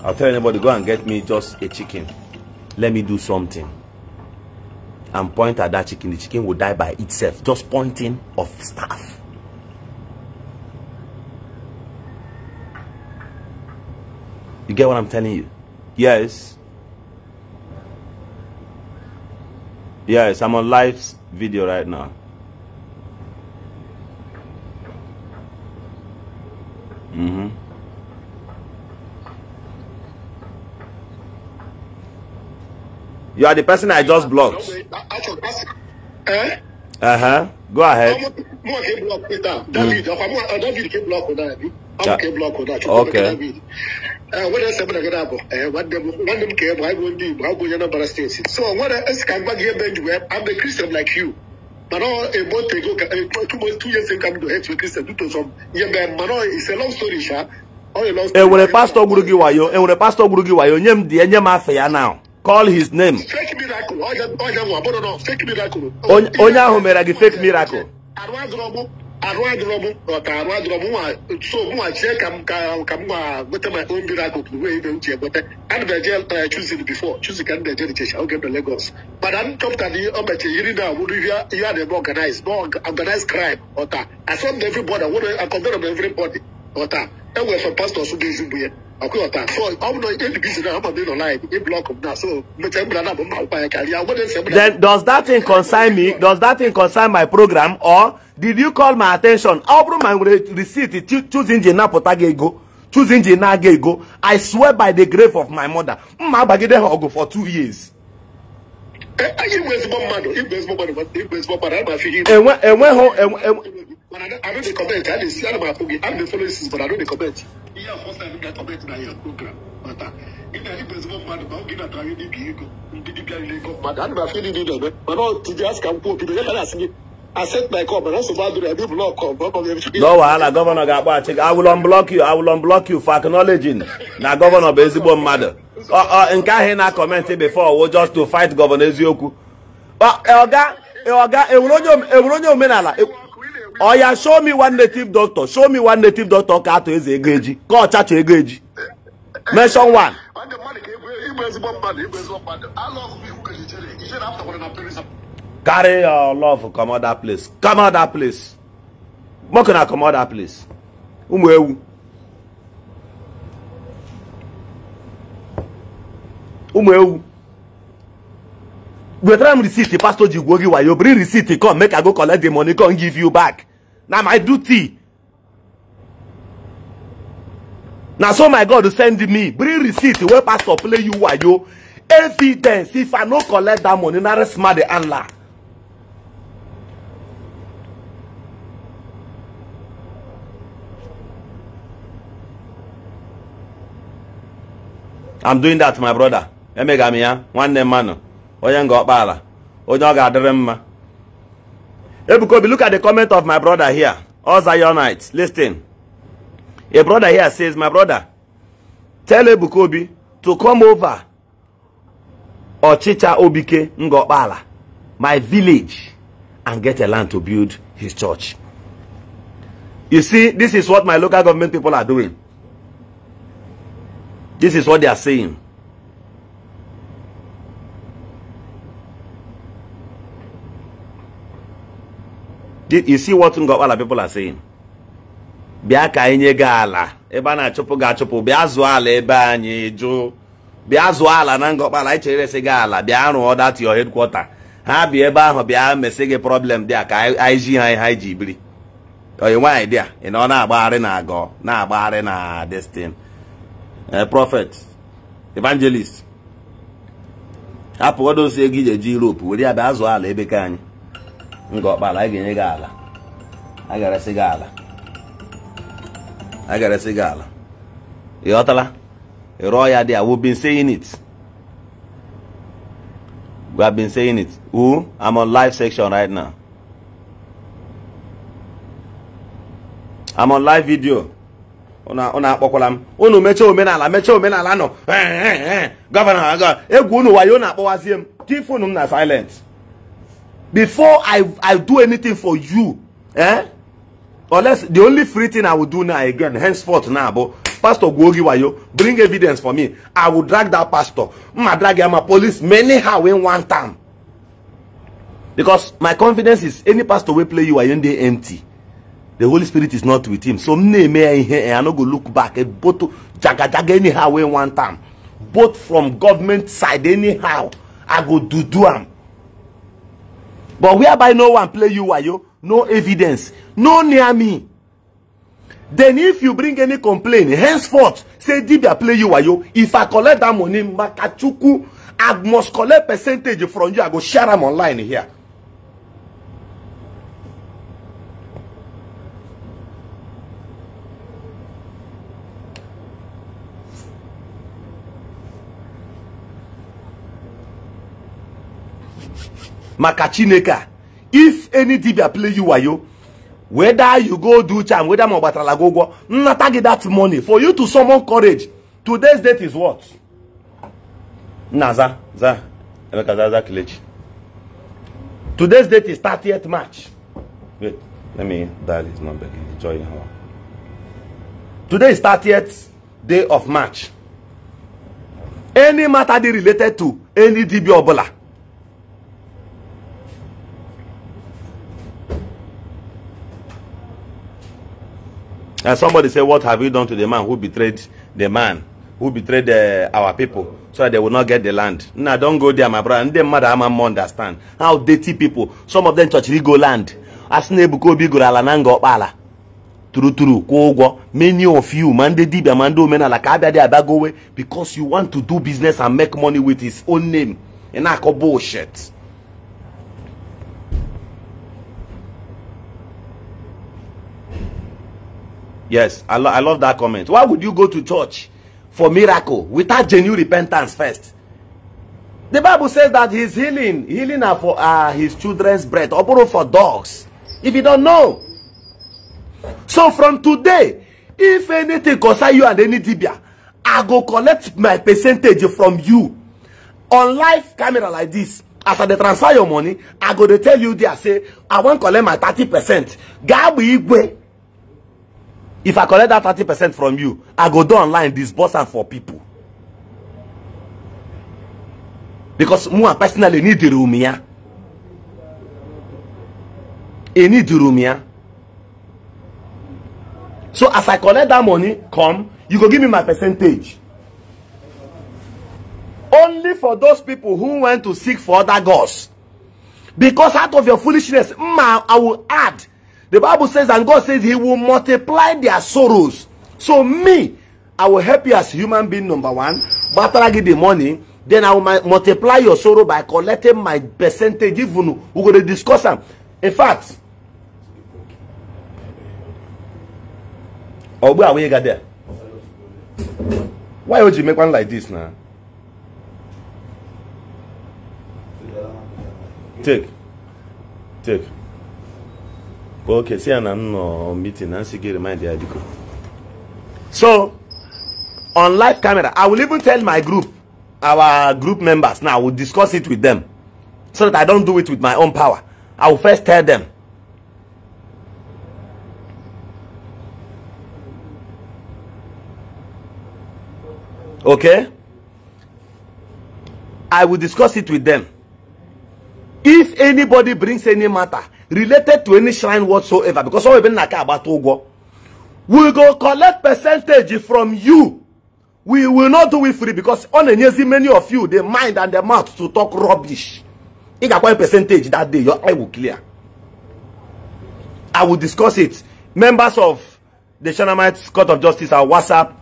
I'll tell anybody, go and get me just a chicken. Let me do something. And point at that chicken. The chicken will die by itself. Just pointing of staff. You get what I'm telling you? Yes. Yes, I'm on live video right now. You are the person I just blocked. Uh huh. Go ahead. Mm. Yeah. Okay. wọ́n mm. sẹ́mu na gada eh, bọ̀ ẹ̀ wọ́n dẹ̀m kẹ́ wọ́n do. di go gbọ́n yẹn náà bara state so what? dẹ̀ ẹ̀sì kan gbàgbé bẹ́ẹ̀ jù i'm a christian like you mana a month ago two two years ago i hate you christian due to some yẹn bẹ́ẹ̀ mana it's a long story ṣá. enwere pastọ gburu gị wayo enwere eh, pastọ gburu gị wayo nye m di ya nye m afọ ya now call his name Fake miracle. onye ahụ mere gị fake miracle arụ adịrọm ọka arụ adịrọm nwa so mụnwa chie ka m ka m nwa gweta my own miracle bụ wee ibe uche gweta ana m eje chuzin before chuzin ka m na-eje richecha oge mbe Lagos mana m chọpụtara ihe o meche yiri na wụrụ ihe a na-eme organize na organize crime ọta asọmd everybody wụrụ akọndọrọ m everybody ọta ɛwɔ ɛfɛ pastor so de zu bu yɛ ɔkò ɔta so ɔmu na ebi bi si na mi na ɔla yɛ e block so mɛtɛ mbila na mo ma ɔkpa yɛ kari awo de then does that thing concern me does that thing concern my program or did you call my at ten tion ọ bụrụ ma nwere receipt choose engine napụta gị ego choose engine na-aga ego i swear by the grave of my mother mma agbagide ha ọgụ for two years. Eh, enweghị But I, don't, I don't comment. I didn't see my but I know comment. Yeah, first time I comment na your program. But uh, if I didn't presume mmadụ ma oge na-atara ndị bi ego ndị dibịa ile ego mmadụ ana m afọ ndị dị eme mana ọtụ ji asị ka m kwuo obido ya gara asị my call mana nsogbu adịrị ebe blọk no wahala gọvanọ ga-akpọ achị gị awụlọ mblọk yu awụlọ for acknowledging na gọvanọ bụ ezigbo mmadụ nke ahụ before eziokwu e, e, e omenala oya show me one native doctor show me one native doctor ka atụ eze ego eji ka ọchacha ego eji mention one carry your love come out place come out place moku na come out place ụmụ ewu ụmụ ewu wetara m receipt pastor ji gwuo gị bring receipt come make i go collect the money come give you back na my duty na so my god send me bring receipt wey pastor play you wayo evidence if i no collect dat money na resma di anla i'm doing dat my broda emegami one nwanne mmanụ onye nga ọkpaala onye ọ ga-adịrị mma Ebuka look at the comment of my brother here all Zionite listen a brother here says my brother tell Ebukobi to come over Ọchịcha Obike nga ọkpaala my village and get a land to build his church you see this is what my local government people are doing this is what they are saying you see what Ngọkpala people are saying bịa ka anyị nye gị ala ebe a na-achụpụ ga achụpụ bịa zụọ ala ebe anyị jụ bịa zụọ ala na Ngọkpala anyị chere esi gị ala bịa rụọ dat your headquarter ha bịa ebe ahụ bịa mesi gị problem dị ka anyị ji ha ihe anyị ji biri oyi nwaanyị dị a ị na ọ na-agbagharị na agọ na-agbagharị na destin eh, prophet evangelist hapụ odosie gị ije ji Europe were ya bịa zụọ ala ebe ka anyị nga ọkpala anyị ga-enye gị ala a ga gị ala a ga gị ala ịghọtala ghọtala ya dị a we've been saying it we have been saying it who I'm on live section right now I'm on live video unu akpọkwala m unu mechaa omenala mechaa omenala nọ gọvanọ egwu unu wayo na-akpọwazie m tifunu m na silent before I, I do anything for you, eh? Unless the only free thing I will do now again, henceforth now, but Pastor Gwogi Wayo, bring evidence for me. I will drag that pastor. I drag him a police many how in one time. Because my confidence is any pastor will play you are in the empty. The Holy Spirit is not with him. So me may I no go look back at eh, both jaga jaga anyhow in one time. Both from government side anyhow. I go do do am. But whereby no one play you wayo, no evidence, no near me. Then if you bring any complaint, henceforth, say Dibia play you wayo, if I collect that money, Makachuku, I must collect percentage from you, I go share them online here. maka chineke if any dibia play you wayo whether you go do charm whether ma gbatara gị ụgwọ nnata gị that money for you to summon courage today's date is what nna za za emeka za za kelechi today's date is 30th march wait let me dial his number joy how today is 30th day of march any matter dey related to any dibia ọbụla And somebody said, What have you done to the man who betrayed the man who betrayed uh, our people so that they will not get the land? Now, nah, don't go there, my brother. And them mother, I'm understand how dirty people, some of them touch go land. As Nebukobi Guralanango Bala. True, true, kwụọ ụgwọ many of you ma ndị dibia ma ndị omenala ka abịa dị abagowe because you want to do business and make money with his own name ị na-akọ bullshit Yes, I, lo I love that comment. Why would you go to church for miracle without genuine repentance first? The Bible says that his healing, healing are for uh, his children's bread, or for dogs. If you don't know. So from today, if anything concern you and any dibia, I go collect my percentage from you. On live camera like this, After I transfer your money, I go to tell you there, say, I won't collect my 30%. Gabu Igwe if i collect that thirty percent from you i go do online disburse am for people because me, and personally ni diri omi I need the omi ya so as i collect that money come you go give me my percentage only for those people who went to seek for other gods because out of your foolishness ma i will add The Bible says, and God says, He will multiply their sorrows. So, me, I will help you as human being, number one. But after I get the money, then I will multiply your sorrow by collecting my percentage. Even we're going to discuss them. In fact, or oh, where are we there? Why would you make one like this now? Take. Take okay see na no meeting na sige remind the adiko so on live camera i will even tell my group our group members now i will discuss it with them so that i don't do it with my own power i will first tell them okay i will discuss it with them if anybody brings any matter related to any shrine whatsoever because all some even naka agbata ụgwọ we go collect percentage from you we will not do it free because ọ na-enyezi many of you the mind and the mouth to talk rubbish ị ga-akwanye percentage that day your eye will clear i will discuss it members of the Shanamites Court of Justice our WhatsApp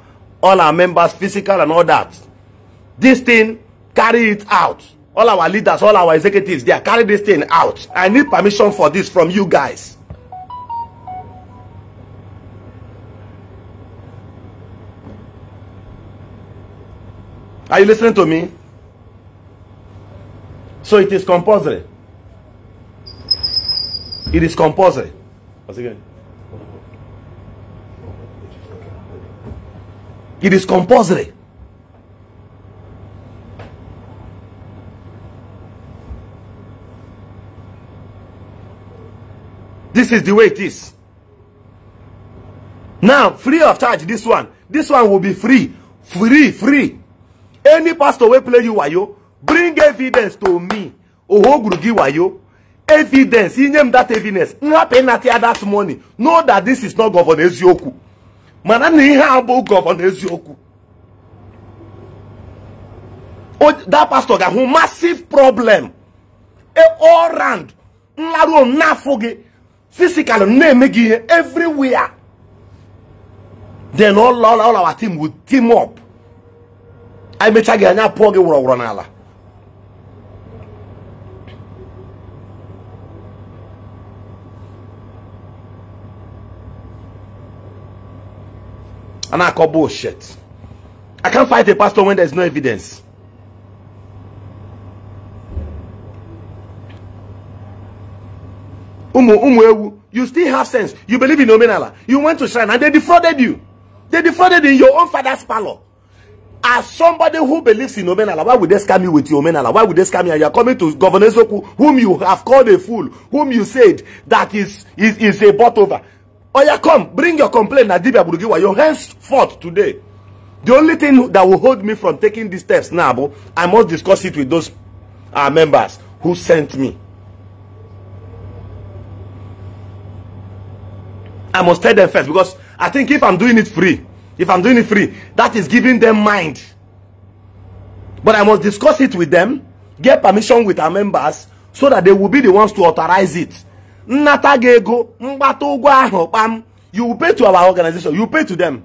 all our members physical and all that this thing carry it out all our leaders all our executives they are carry this thing out i need permission for this from you guys are you listening to me so it is compulsory it is compulsory What's again it is compulsory This is the way it is. Now, free of charge, this one. This one will be free. Free, free. Any pastor will play you wayo. Bring evidence to me. Ohogrugi wayo. Evidence. He named that evidence. Nga penalty that money. Know that this is not Governor Ezioku. Mana ni ihe abụ Governor Ezioku. That pastor ga-ahụ massive problem. E, all round. Nlaruo m n'afọ physically na-eme gị ihe everywhere then all all our team will team up anyị mechaa gị anya pụọ gị wụrọwụrọ n'ala I can't fight a pastor when there is no evidence. umu umu ewu you still have sense you believe in omenala you went to shrine and they defrauded you they defrauded in your own father's parlor as somebody who believes in omenala why would they scam you with your omenala why would they scam you and you are coming to governor Zoku, whom you have called a fool whom you said that is is is a bot over oya come bring your complaint na dibia burugiwa your hands fought today the only thing that will hold me from taking these steps now i must discuss it with those our uh, members who sent me I must tell them first because I think if I'm doing it free, if I'm doing it free, that is giving them mind. But I must discuss it with them, get permission with our members so that they will be the ones to authorize it. Nnata ga-ego mgbata you pay to our organization, you pay to them.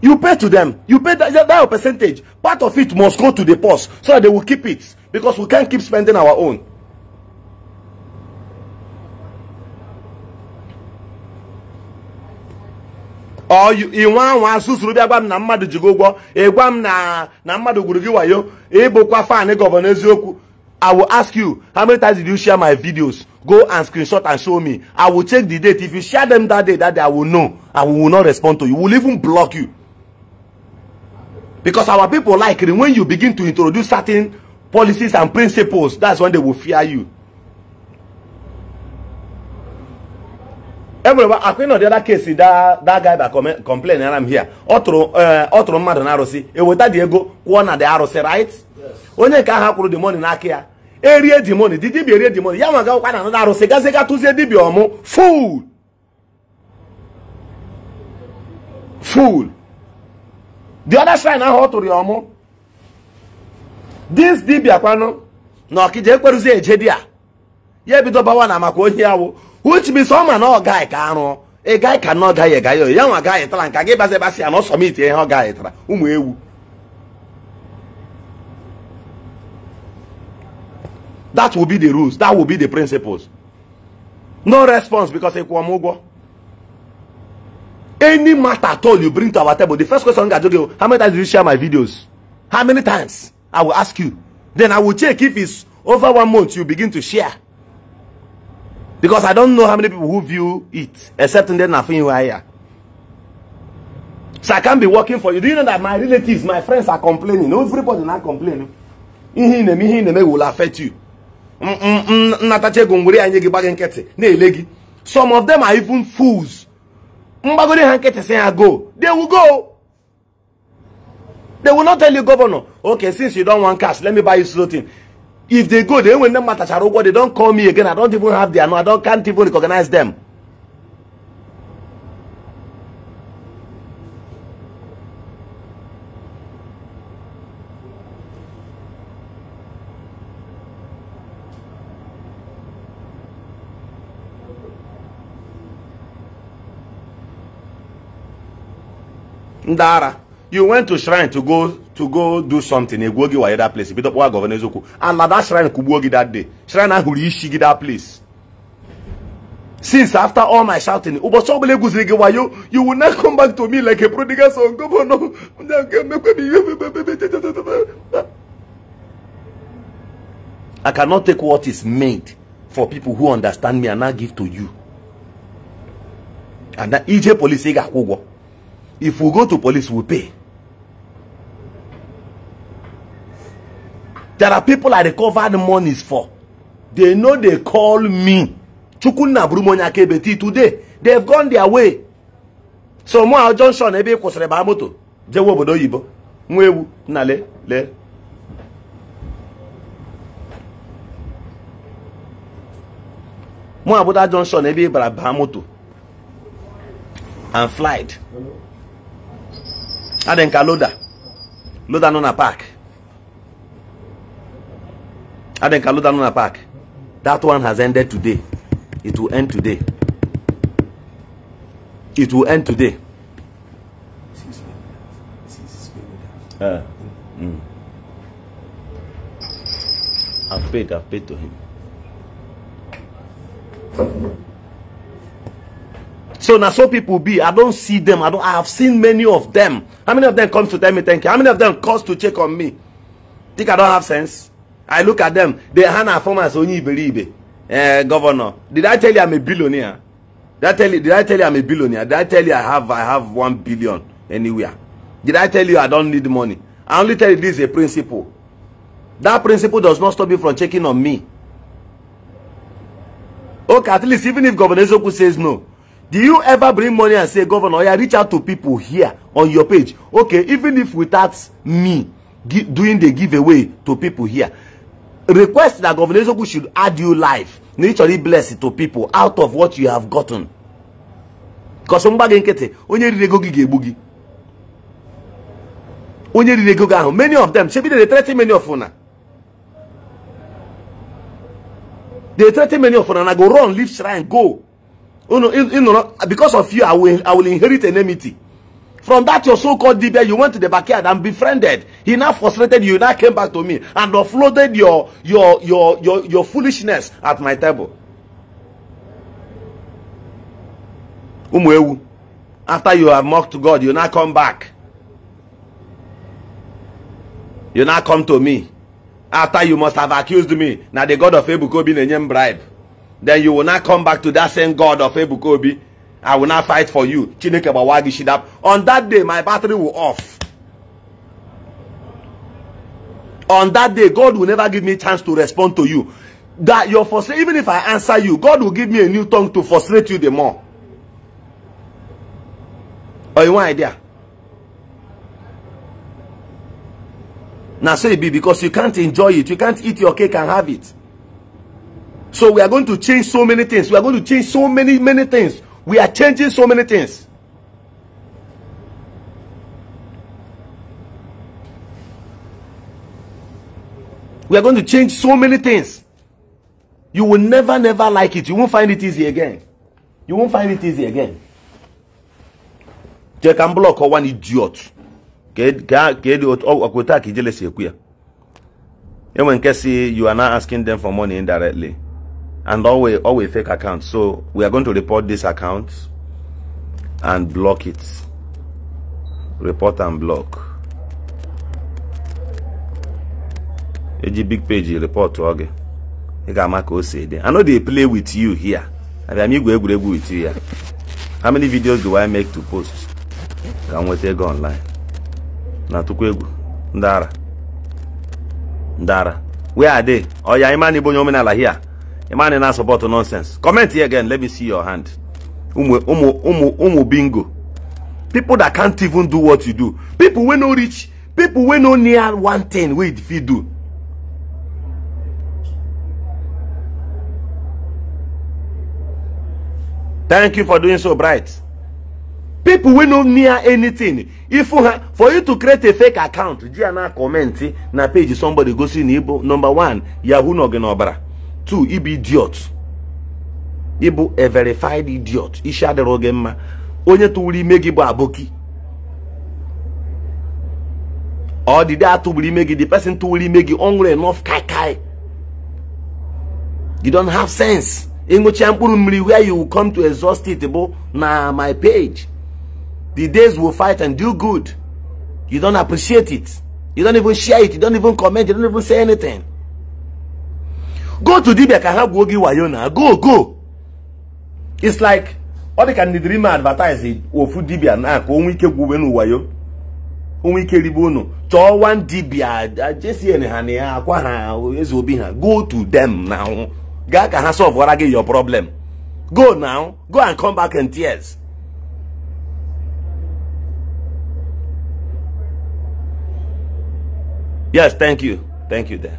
You pay to them. You pay that, that percentage. Part of it must go to the post so that they will keep it because we can't keep spending our own. inwe anwụ asụsụrụ bịa gwa m na mmadụ ji gị ụgwọ ịgwa m na mmadụ gwuru gị wayo ịbụkwa fan gọvanọ eziokwu I will ask you how many times did you share my videos go and screenshot and show me I will check the date if you share them that day that day I will know I will not respond to you we will even block you because our people like it when you begin to introduce certain policies and principles that's when they will fear you enwere akwa nọ dị ọda kesi daa guy that complain ara m here ọ tụrụ eh, mmadụ na arụsị eweta dị ego kwụọ na dị arụsị right onye nke aha akwụrụ dị money n'aka ya e erie dị money dị dibịa erie dị money ya nwa gawakwa na anada arụsị gaziga tụzie dibịa ọmụ ful fuul the other shrine ahụ ọ tụrụ ya ọmụ dis dibịa kwanụ na ọkịja ekwerụzi eje di ya ya ebido bawa na maka onye awụ which means ọma na ọ gaghị ka arụ ị gaghị ka na ọ gaghị gaghị ya nwa gaghị tara nka gị basị basị ya na ọ sọmiti ihe ọ gaghị tara ụmụ ewu that will be the rules that will be the principles no response because ịkwụọ m ụgwọ any matter at all you bring to our table the first question ga joge how many times did you share my videos how many times i will ask you then i will check if it's over one month you begin to share because i don't know how many people who view it except in nothing higher so i can't be working for you do you know that my relatives my friends are complaining everybody now complaining ihe na-eme ihe na will affect you nnatacha ego ngwere anyị gị gbaghị some of them are even fools mgbagoro ha nkịtị go they will go they will not tell you governor okay since you don't want cash let me buy you something. if they go they will. them matter ugwo they don't call me again i don't even have their number. i don't can't even recognize them Ndara, you went to shrine to go to go do something egwuo gị wanye that place bido kpọwa gọvanọ eziokwu and na that shrine kugbuo gị that day shrine ahụrụ isi gị that place since after all my shouting ụbọchị ọbụla egwuziri gị you will not come back to me like a prodigal son gọvanọ I cannot take what is made for people who understand me and not give to you and that ije police say ga-akwụ if we go to police we pay There are people I recovered monies for. They know they call me. Chukunna Brumonya KBT today. They've gone their way. So Moha Johnson ebe kwụsịrị ba moto jewe obodo oyibo nwa ewu na le le Moha Buda ebe bara ba moto and flight adenka loda loda nọ na park. on Luna Park. That one has ended today. It will end today. It will end today. Uh, mm. I've paid, I've paid to him. So now so people be, I don't see them. I don't I have seen many of them. How many of them comes to tell me thank you? How many of them calls to check on me? Think I don't have sense? I look at them. They hand our former Onyi Iberibe, uh, governor. Did I tell you I'm a billionaire? Did I tell you? Did I tell you I'm a billionaire? Did I tell you I have I have one billion anywhere? Did I tell you I don't need money? I only tell you this is a principle. That principle does not stop you from checking on me. Okay, at least even if Governor Ezoku says no, do you ever bring money and say, Governor, yeah, reach out to people here on your page? Okay, even if without me doing the giveaway to people here, request that Governor Ezeoku should add you life naturally bless to people out of what you have gotten because mgba gị nkịtị onye riri ego gị ga-egbu gị onye riri ego gị ahụ many of them shebi they threaten many of una they threaten many of una and I go run leave shrine go unu ịnọrọ because of you I will, I will inherit enmity From that your so-called DBA, you went to the backyard and befriended. He now frustrated you, now came back to me and offloaded your your your your, your foolishness at my table. After you have mocked God, you now come back. You now come to me. After you must have accused me. Now the God of Ebukobi nenye bribe. Then you will not come back to that same God of Ebukobi I will not fight for you. Chineke bawagi gị shidap. On that day, my battery will off. On that day, God will never give me a chance to respond to you. That your frustration, even if I answer you, God will give me a new tongue to frustrate you the more. Or oh, you want idea? Now so it be because you can't enjoy it. You can't eat your cake and have it. So we are going to change so many things. We are going to change so many, many things We are changing so many things. We are going to change so many things. You will never, never like it. You won't find it easy again. You won't find it easy again. They can block one idiot. kedu ọkwụta ka ijele si ekwu you are not asking them for money indirectly and all always fake accounts so we are going to report this account and block it report and block eji big page report to oge i know they play with you here abịam igwe with you here how many videos do i make to post Can we nweta online na tụkwa Ndara. Ndara. where are they Oh, ịma na in onye omenala here a man in answer about nonsense. Comment here again. Let me see your hand. Umu, umu, umu, umu bingo. People that can't even do what you do. People we no rich. People we no near one thing we if you do. Thank you for doing so bright. People we no near anything. If you for you to create a fake account, Gianna comment na page somebody go see Nibo. Number one, Yahoo no obara two he be idiot He bụ a verified idiot isi adịrọ gị mma onye tụwuru ime gị bụ aboki day atụgburu ime gị the person tụwuru ime gị ọ enough kai kai you don't have sense ịṅụcha mkpụrụ mmiri where you come to exhaust it bụ na my page the days will fight and do good you don't appreciate it you don't even share it you don't even comment you don't even say anything go to dibia ka ha gwuo go go it's like all the can dream dirima advertise ofu dibia na ka onwe ike gwuwe n'ụwayo onwe ike ribe unu chọọ wan dibia jsn ha na ya Zubina. go to them now gaa ka ha solvewara get your problem go now go and come back in tears yes thank you thank you there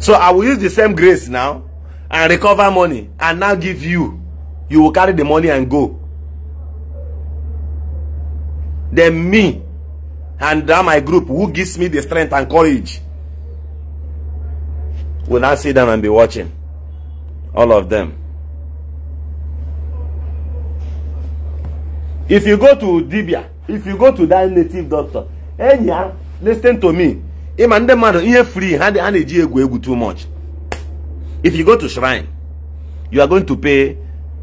So I will use the same grace now and recover money and now give you. You will carry the money and go. Then me and that my group who gives me the strength and courage will now sit down and be watching. All of them. If you go to Dibia, if you go to that native doctor, hey, yeah, listen to me ịma ndị mmadụ ihe free ha na-eji egwu egwu too much if you go to shrine you are going to pay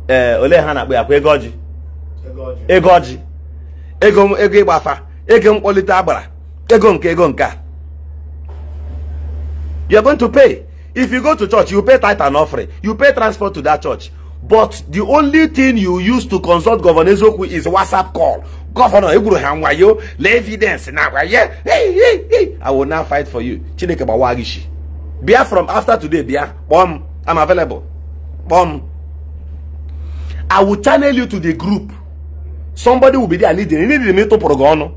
eh, ole ha na-akpọ ya kwa ego ọjị ego ọjị ego ego ịgba afa ego mkpọlite agbara ego nke ego nke you are going to pay if you go to church you pay tithe and offering you pay transport to that church but the only thing you use to consult governor Ezeokwu is whatsapp call gọvanọ egwuru ha nwayo lee evidence na agwa ye i will now fight for you chineke gbawa gishi bịa from after today bịa kpọọ i I'm available kpọọ I will channel you to the group somebody will be there leading ndị dị m ịtụpụrụ gị ọnụ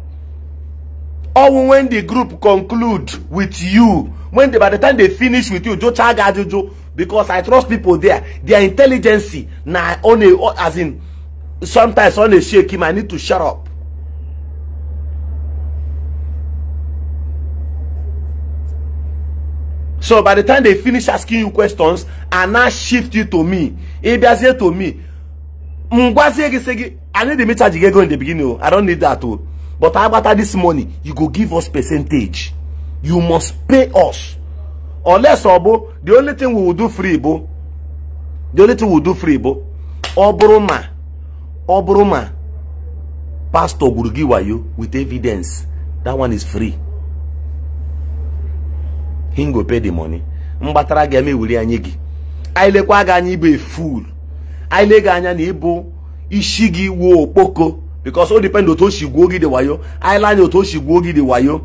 when the group conclude with you when they, by the time they finish with you jụchaa gị ajụjụ because I trust people there their intelligence na on only as in sometimes only shake him I need to shut up So by the time they finish asking you questions and now shift you to me, if they say to me, e I need the meter to get go in the beginning. Oh, I don't need that Oh, But how about this money? You go give us percentage. You must pay us. Unless Obo, the only thing we will do free, Bo. The only thing we will do free, Bo. Oburuma, Oburuma, Pastor Gurugi with evidence. That one is free. him go pay the money mgbatara gị eme ewuli anyị gị anyị lekwa fool anyị le gị ishigi wo poko because all depend otu o si gwuo gị wayo anyị le anya otu wayo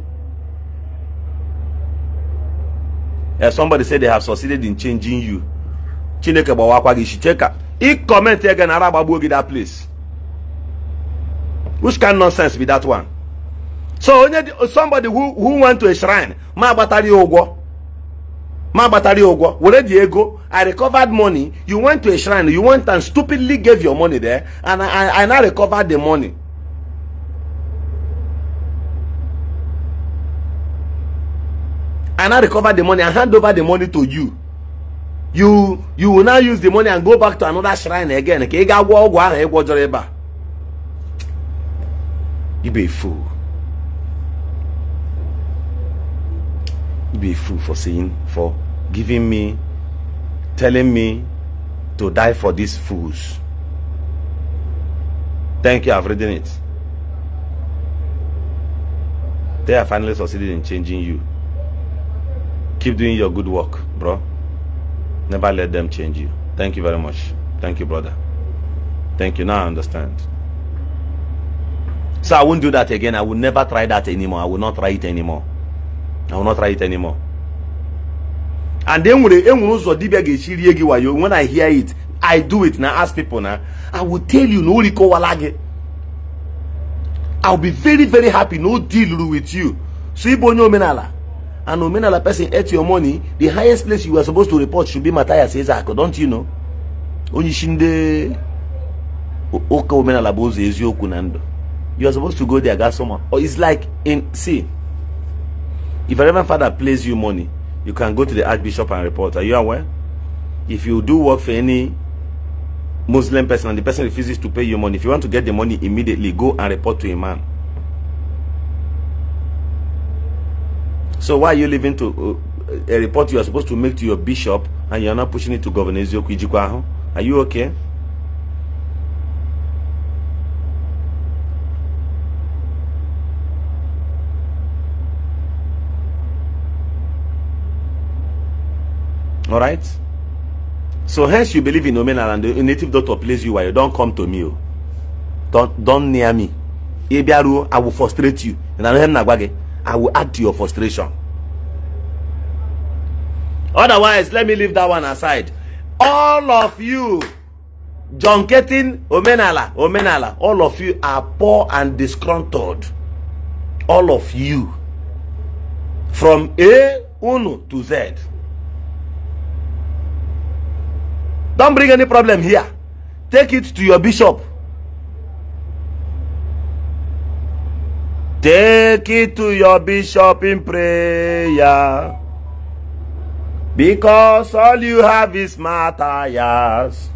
somebody said they have succeeded in changing you chineke ba gị isi cheka ị kọmentị ege na ara that place which kind nonsense be that one so somebody who who went to a shrine ma batari ogwo, my ma agbatara ya ụgwọ were i recovered money you went to a shrine you went and stupidly gave your money there and i i, I now recovered the money i now recovered the money and hand over the money to you you you will now use the money and go back to another shrine again ka ị ga a fool be a fool for saying, for giving me, telling me to die for these fools. Thank you, I've written it. They have finally succeeded in changing you. Keep doing your good work, bro. Never let them change you. Thank you very much. Thank you, brother. Thank you. Now I understand. So I won't do that again. I will never try that anymore. I will not try it anymore. I will not try it anymore. And then when ụzọ dibia ga-echi rie gị when I hear it I do it now ask people now I will tell you no o rikọwala gị I'll be very very happy no deal with you so ịbụ menala. And an menala person ate your money the highest place you are supposed to report should be Matthias Ezeaku don't you know Oni shinde. Oka menala omenala bụ ụzọ you are supposed to go there gasoma or it's like in see If a Reverend Father pays you money, you can go to the Archbishop and report. Are you aware? If you do work for any Muslim person and the person refuses to pay you money, if you want to get the money immediately, go and report to a man. So why are you leaving to uh, a report you are supposed to make to your bishop and you are not pushing it to Governor Ezio Are you okay? All right. So hence you believe in Omenala and the native doctor plays you while you don't come to me. Oh. Don't don't near me. Ibiaru, I will frustrate you. And I will add to your frustration. Otherwise, let me leave that one aside. All of you, John Ketin, Omenala, Omenala, all of you are poor and disgruntled. All of you. From A, Uno to Z. Don't bring any problem here. Take it to your bishop. Take it to your bishop in prayer. Because all you have is matters.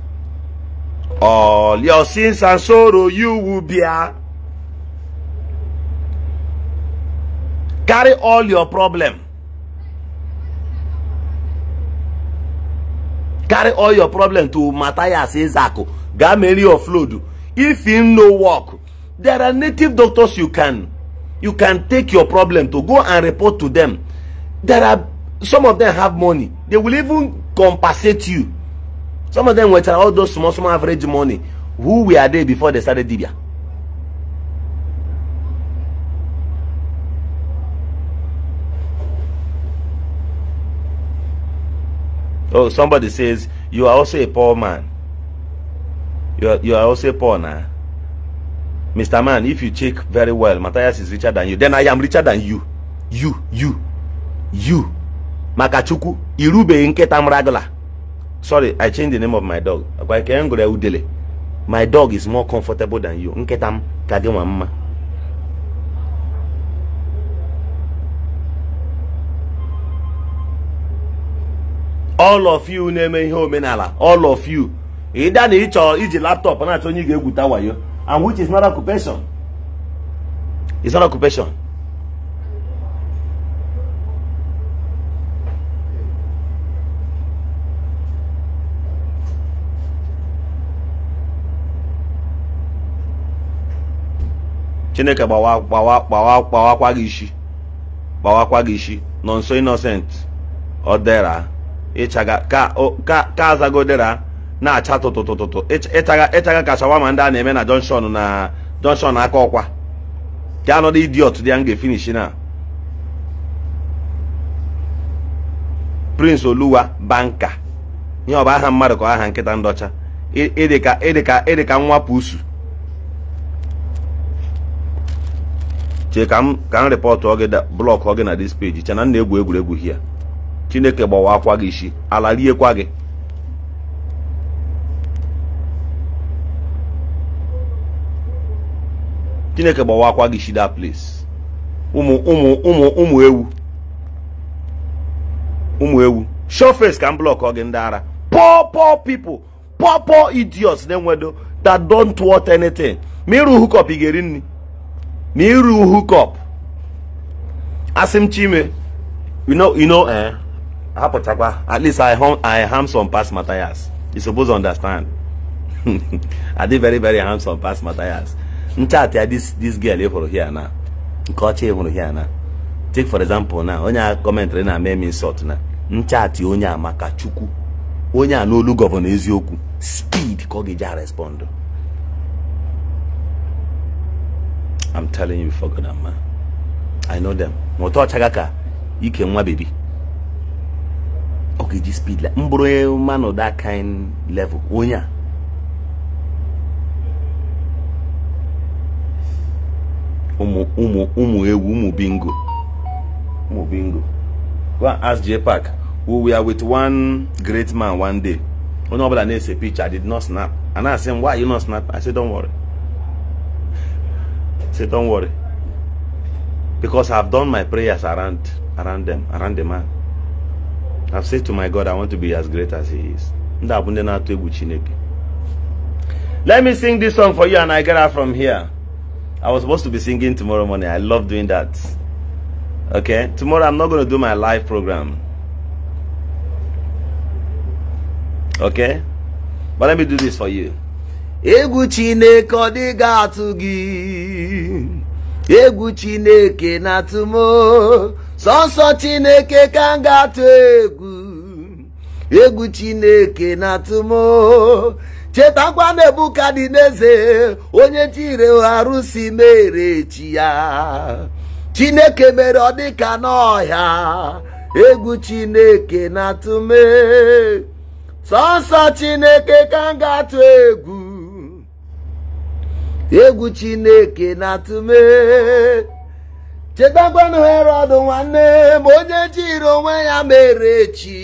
All your sins and sorrow you will bear. Carry all your problem. carry all your problem to Matthias Ezako, Gameli or Flodu. If in no work, there are native doctors you can you can take your problem to go and report to them. There are some of them have money. They will even compensate you. Some of them were all those small, small average money. Who were they before they started Dibia? Oh, somebody says, you are also a poor man. You are, you are also poor now. Mr. Man, if you check very well, Matthias is richer than you. Then I am richer than you. You, you, you. Makachuku, Irube Inketam Ragala. Sorry, I changed the name of my dog. My dog is more comfortable than you. Inketam Kagema Mama. all of you na-eme ihe omenala all of you ịda na ịchọ iji laptop na-achọ onye ga-egwuta wayo and which is not occupation is not occupation chineke gbawakwa gị isi gbawakwa gị isi nọ nso innocent ọ dara. ịchaga ka azagodera na-acha tụtụtụtụtụ ịchaga ka shawama ndị a na-eme na jọnshọn na jọnshọn aka ọkwa ga anọdụ idiot dị ya m ga-efinishi na prince oluwa banka ihe ọ bụ aha mmadụ ka aha nkịta ndọcha ịdị ka nwa pusu chee ka m rịpọtụ blọkụ ọ gị na dis peji chena na egwu egwuregwu hia chineke gbawa akwa gị isi ala riekwa gị chineke gbawa akwa gị isi that place ụmụ ụmụ ụmụ ụmụ ewu ụmụ ewu shọfes ka m blọkọ gị ndị ara poor poor people poor poor idiots na-enwedo that don't want anything ma ịrụ hukọp ị ga-eri nri ma ịrụ hukọp asị m chime you know you know eh hapụchakwa at least i hum i handsome pass Matthias you suppose understand [laughs] i dey very very some pass Matthias nchat ya this this girl ị hụrụ here na nke ọcha ịhụrụ hụrụ here na take for example na onye a kọmentrị na eme m na nchatị onye a maka chukwu onye a n'olu gọvanọ eziokwu speed ka ọ ga-eji a respond I'm telling you before God man I know them ma ọchaga ka ike nwa bebi ga speed like m bụrụ man of that kind level onye a Umu, umu, ụmụ umu, bingo umu, bingo go and ask j we were with one great man one day onye ọbụla na-ese picture I did not snap and I say why you not snap I said, don't worry I say don't worry because I've done my prayers around around them around the man I've said to my God, I want to be as great as He is. Let me sing this song for you and I get out from here. I was supposed to be singing tomorrow morning. I love doing that. Okay? Tomorrow I'm not going to do my live program. Okay? But let me do this for you. Egwu Chineke ọ atụ gị egwu chineke na-atụ m chineke ka m atụ egwu egwu chineke na-atụ m chetakwa na n'eze onye chirigharụ si mere echi ya chineke mere ọ dịka n'ọhịa egwu chineke na-atụ m sọsọ chineke ka m atụ egwu egwu chineke na-atụme chetakwanụ herọd nwanne ma onye jiri onwe ya mere echi.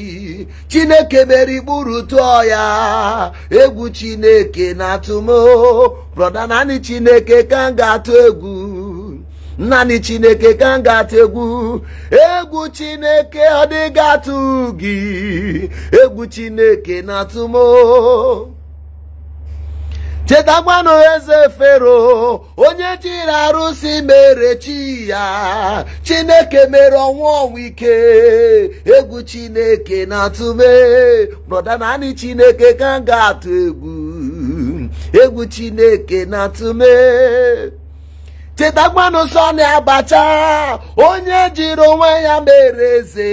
chineke mere ikpuru tụọ ya egwu chineke na-atụmo brọda naanị chineke ka m ga-atụ egwu naanị chineke ka m ga-atụ egwu egwu chineke ọ dịghị atụ gị egwu chineke na-atụmo chetakwanụ eze fero onye jiri arụsị mere chi ya chineke mere ọnwa ike egwu chineke na-atụme brọda naanị chineke ka m ga-atụ egwu egwu chineke na-atụme chetakwanụ sọ na abacha onye jiri onwe ya mere eze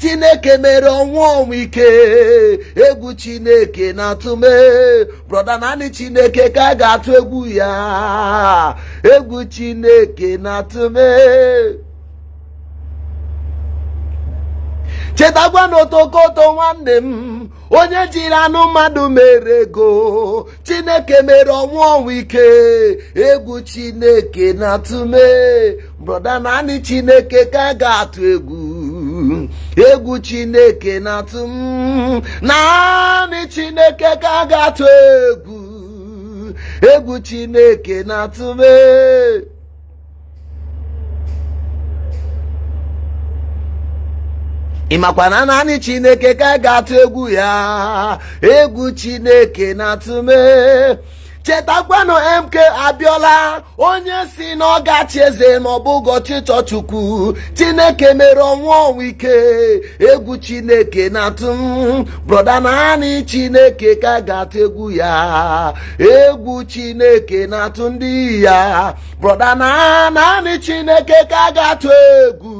chineke mere ọnwụ ọnwụ ike egwu chineke na-atụme brọda naanị chineke ka ga-atụ egwu ya egwu chineke na tume chetakwa na otokoto nwanne m onye jiri anụ mmadụ mere ego chineke mere ọnwụ ọnwụ ike egwu chineke na-atụme broda naanị chineke ka ga-atụ egwu egwu chineke na-atụ naanị chineke ka ga-atụ egwu egwu chineke na-atụme ịmakwa na naanị chineke ka ga-atụ egwu ya egwu chineke na-atụ mee chetakwanụ mk abiola onye si na ọ eze ma ọ bụghị ọchịchọ chukwu chineke mere ọnwụ ọnwụ ike egwu chineke na-atụ m brọda naanị chineke ka ga-atụ egwu ya egwu chineke na-atụ ndị ya brọda naanị chineke ka ga-atụ egwu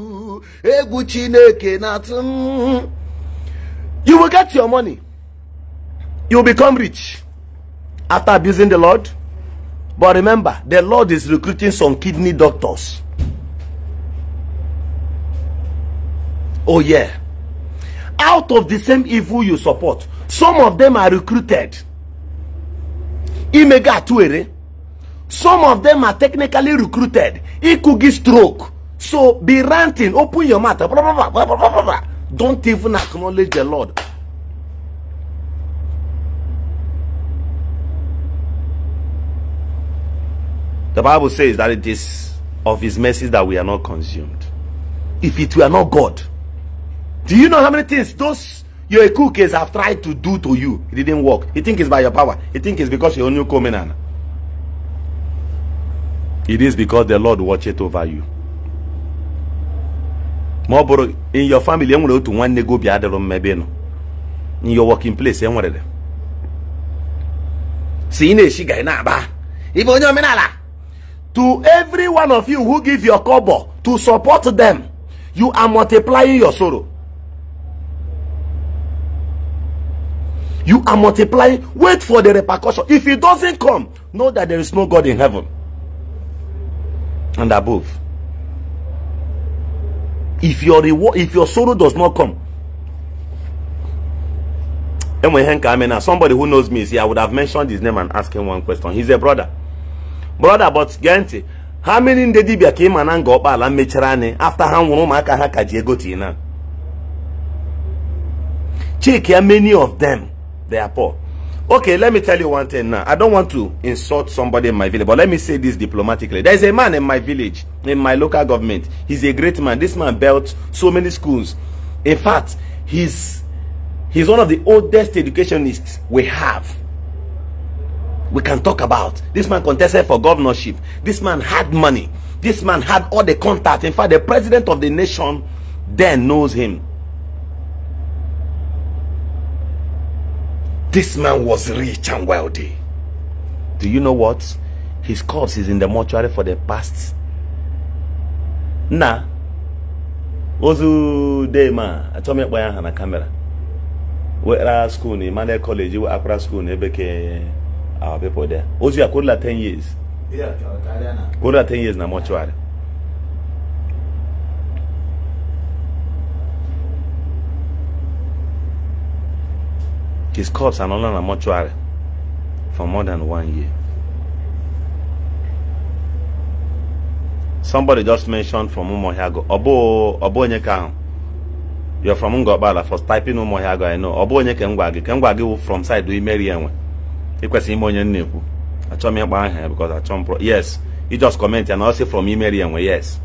Mm, you will get your money you will become rich after abusing the lord but remember the lord is recruiting some kidney doctors oh yeah out of the same evil you support some of them are recruited some of them are technically recruited ikugi stroke so be ranting, open your mouth. Blah, blah, blah, blah blah blah. Don't even acknowledge the Lord. The Bible says that it is of his mercies that we are not consumed. If it were not God. Do you know how many things those your cookies have tried to do to you? It didn't work. You think it's by your power. You think it's because you're a new covenant. It is because the Lord watches over you. ma ọ bụrụ in your family enwere otu nwanne gị obi adịrụ mma ebe ị nọ in your working place enwere si ị na-eshi ga ị na-aba ịbụ onye omenala to every one of you who give your cobo to support them you are multiplying your sorrow you are multiplying wait for the repercussion if it doesn't come know that there is no god in heaven and above if your reward if your sorrow does not come somebody who knows me see i would have mentioned his name and asked him one question he's a brother brother but gantị how many ndị dibịa came and go? na nga ọkpala after anyị afta ha nwụrụ ụmụaka ha ka ji many of them they are poor okay let me tell you one thing now i don't want to insult somebody in my village but let me say this diplomatically there's a man in my village in my local government he's a great man this man built so many schools in fact he's he's one of the oldest educationists we have we can talk about this man contested for governorship this man had money this man had all the contact in fact the president of the nation then knows him This man was rich and wealthy. Do you know what? His corpse is in the mortuary for the past. Nah. Ozu Dema, I told me where I had a camera. Where school, Emmanuel College, where Accra School, beke our people there. Ozu, I could 10 years. Yeah, Kola 10 years na mortuary. His corpse anọla na mortuary for more than one year. Somebody just mentioned from Umuohiago. Obo Obo you You're from Ngobala for typing Umuohiago, I know. Obo onye Ngwagi. Ngwagi from side do Imeri Enwe. Ikwesi ime onye nnekwu. Achọ m ịgba aha because achọ pro. Yes. You just comment and I'll say from Imeri Enwe. Yes.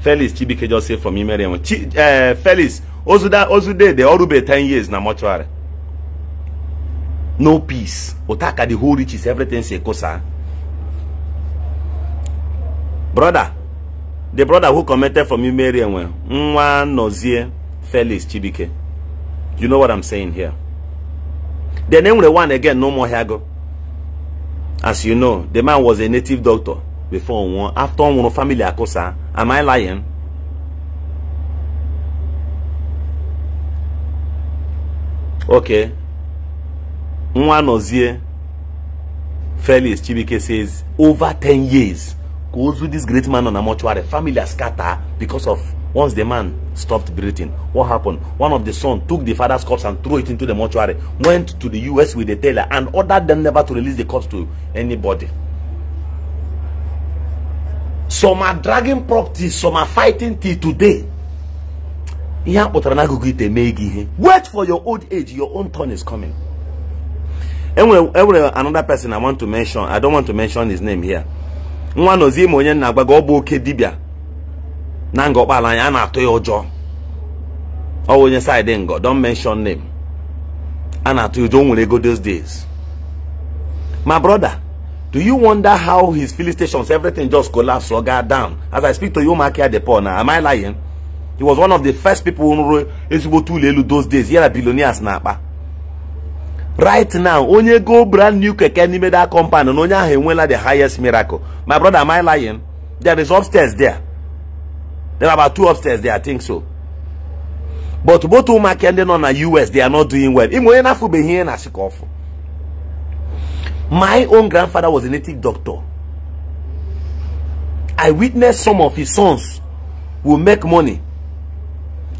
Felix Chibike just say from Imeri Enwe. Chi, uh, Felix Ozuda Ozude they all be 10 years na mortuary. no peace otaka the whole riches everything sa. brother the brother who commented from you, well and Nozie Felix Chibike you know what I'm saying here name the one again no more Hago as you know the man was a native doctor before one after one family akosa am I lying okay Nwanozie Felix Chibike says, over 10 years, goes with this great man on a mortuary, family are scattered because of once the man stopped breathing. What happened? One of the sons took the father's corpse and threw it into the mortuary, went to the US with the tailor and ordered them never to release the corpse to anybody. Some are dragging property, some are fighting till today. Wait for your old age, your own turn is coming enwere another person i want to mention i don't want to mention his name here nwa nọzi ime onye nna agbaga ọ bụ oke dibịa na nga ọkpala anya a na-atụ ya ọ side ngo don't mention name And na you don't o those days my brother do you wonder how his filling stations everything just collapsed or got down as i speak to you Makia Depot now am i lying he was one of the first people who ezigbo to elu those days ya na billionaires na akpa right now onye go brand new keke n'ime that na onye ahụ enweela the highest miracle my brother am I lying there is upstairs there there are about two upstairs there I think so but both ụmụaka ndị nọ na US they are not doing well ime onye na-afụbeghị ihe na-asị ka my own grandfather was a native doctor I witnessed some of his sons who make money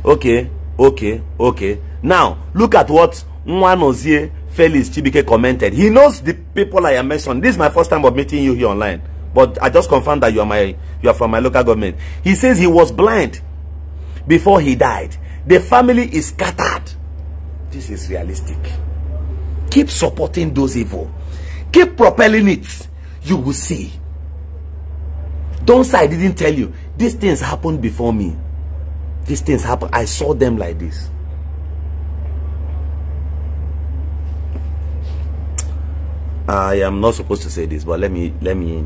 okay okay okay now look at what Nwanozie Felix Chibike commented. He knows the people I am mentioned. This is my first time of meeting you here online. But I just confirmed that you are my you are from my local government. He says he was blind before he died. The family is scattered. This is realistic. Keep supporting those evil. Keep propelling it. You will see. Don't say I didn't tell you. These things happened before me. These things happen. I saw them like this. I am not supposed to say this, but let me let me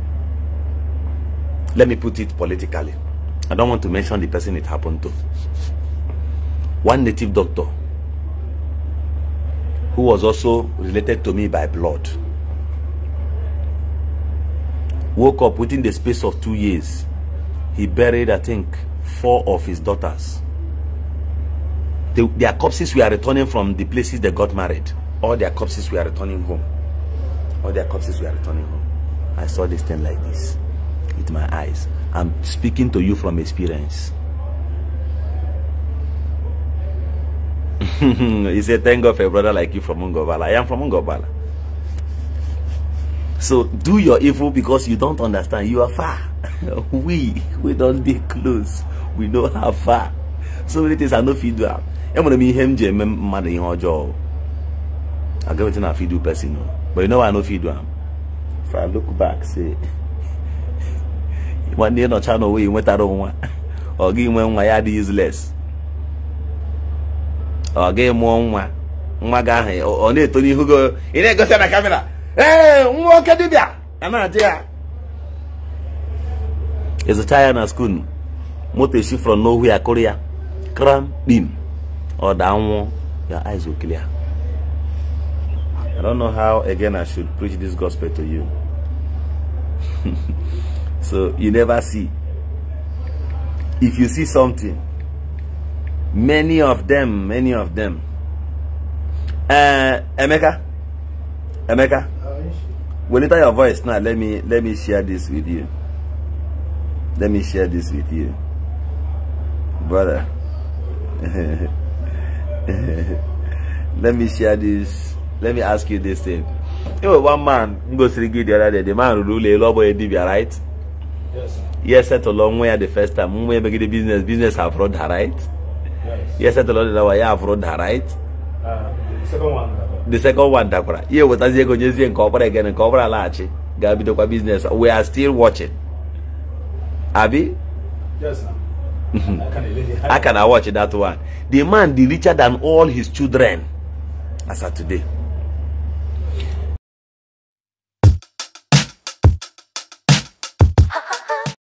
[laughs] let me put it politically. I don't want to mention the person it happened to. One native doctor who was also related to me by blood woke up within the space of two years. He buried, I think, four of his daughters. their corpses were returning from the places they got married all their corpses were returning home. All their corpses were returning home. I saw this thing like this with my eyes. I'm speaking to you from experience. [laughs] he said, thank God for a brother like you from Ungobala. I am from Ungobala. So do your evil because you don't understand. You are far. [laughs] we, we don't be close. We know how far. So many things are no feedback. I'm going to be him, Jim, mother in her jaw. I get wetin I fit do person no but you know why I no fit do am if I look back say nọcha nwetara nwa ọ gị nwe nwa ya dị ọ gị nwa nwa ọ na na kamera ee nwa ya na skuul moto esi frọ n'ohu ya kụrụ ya kram ọ I don't know how again I should preach this gospel to you. [laughs] so you never see. If you see something, many of them, many of them. Uh, Emeka, Emeka, when you your voice now, let me let me share this with you. Let me share this with you, brother. [laughs] let me share this let me ask you this thing enwere one man m gosiri gị the other day the man rụrụ ụlọ elu ọgbọghị dibia right yes setụlụ nwa ya the first time nwa emegide business business have run her right yes setụlụ dị nawa ya have run her right uh, the second one dakwara Ihe ewetazi ego nyezie nke ọbara egen nke ọbara laghachi ga-abidokwa business we are still watching abi mhm. I can watch that one the man dị richer than all his children as of today